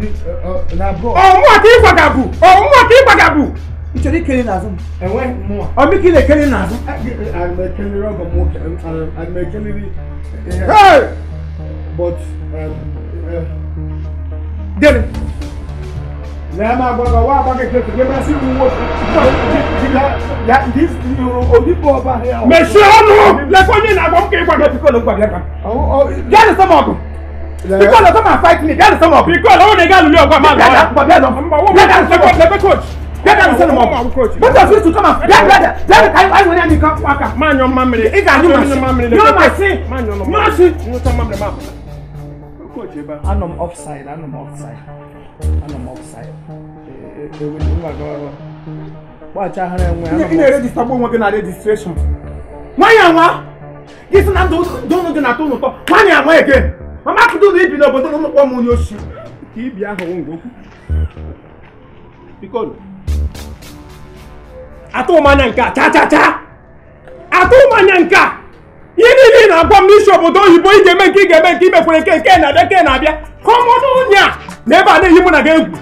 òun mọ̀ kí gbàgàbù òun mọ̀ kí gbàgàbù. ìṣòrí kele nà zùm. ẹ̀wẹ̀ mọ̀. ọmọ kí lè kele nà zùm. àmẹ̀kẹ́lẹ́ rọ́gọ̀ mọ̀ àmẹ̀kẹ́lẹ́ rí. but. dèrè. lẹ́yìn máa gbọ́dọ̀ wá àbá kékeré tó gbẹ́mẹ́ sí ìwọ onígbò ọba. mẹ̀sì ọ̀nù lẹ́kọ̀ọ́ yẹn kí gbàgbẹ́ pikọ́ ló gbàgbẹ́ kan. jáde sọ́mọ́ ọ̀gùn. Because of come and fight me, that is some of Because all the I want to get your man. Let them let them coach. Let them send them up. Both of you to come and let let let I I want to come back. Man your mama. If I knew my sin, you my sin. Man your mama. Mercy. You know some mama mama. Coach, I know I'm offside. I know I'm offside. I know I'm offside. They will do my girl. Watch out, honey. You know, register one working at registration. Why am I? This is not don't don't do not do not. Why am I again? mama Kidudu ibi n'obodo na ụmụkpọ m onye osi ka ibi ahụ ngwa okwu atụ m anya nke a cha cha cha atụ m anya nke a ihe niile ị na-agwa m n'isi obodo oyibo ị ga-eme nke ị ga-eme nke imekwere nke nke na-abịa nke na-abịa ka ọ mụnụ onye a na ebe a na-eyi mụ na gị egwu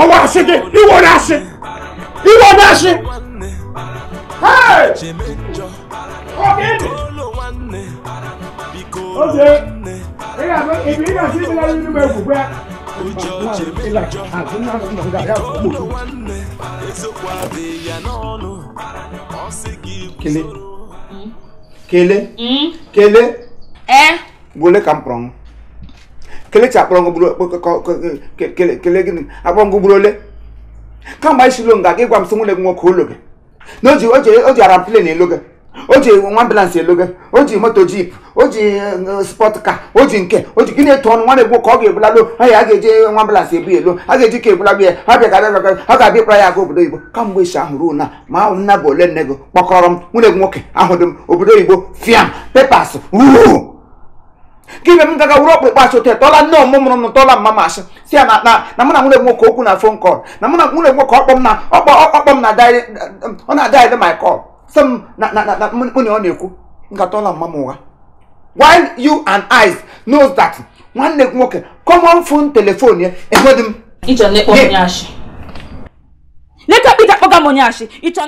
ọwa asị gị iwere asị iwere asị Hey! Okay ó ṣe ìgbà ìbí ìgbà sí ìgbà nínú bẹ kù pé. Kele. Kele. Hmm? Kele. Eh. Boleh kamprong. Kele cak prong bulu kele kele gini. Apa ngu bulu le? Kan bai silong gak ke kwam sumu le ngok hulu ke. Noji oji oje aram plane le ke. o ji nwa ambulance o ji moto jip o ji e, e, spọt ka o ji nke o ji gịnị etu ọnụ nwa na-egbu ka ọ ga-ebulalụ anya a ga-eje nwa ebu elo a ga-eji ka ebulalụ ya ha bịa ha ga-abịa ịkpara ya aga obodo oyibo kamgbe isi ahụ ruo na ma ahụ nna bụ ole nne gị kpọkọrọ m nwunye gị nwoke ahụdị m obodo oyibo fiam pepas ruo gị m gaga wuru ọkpụkpọ asị otu e, tọla nne ọmụmụrụ m tọla mma ma asị si ya na na mụ na nwunye nwoke okwu na fon kọl na mụ na nwunye nwoke ọkpọ m na ọkpọ m na ọ na-adịrị my kọl some na na na money ọ na-ekwu nkata ọla mma m ụgha while you and I knows that nwanne gị nwoke common phone telephone ya enweghị m. ịchọ na ịkpọ onye ashị. Leka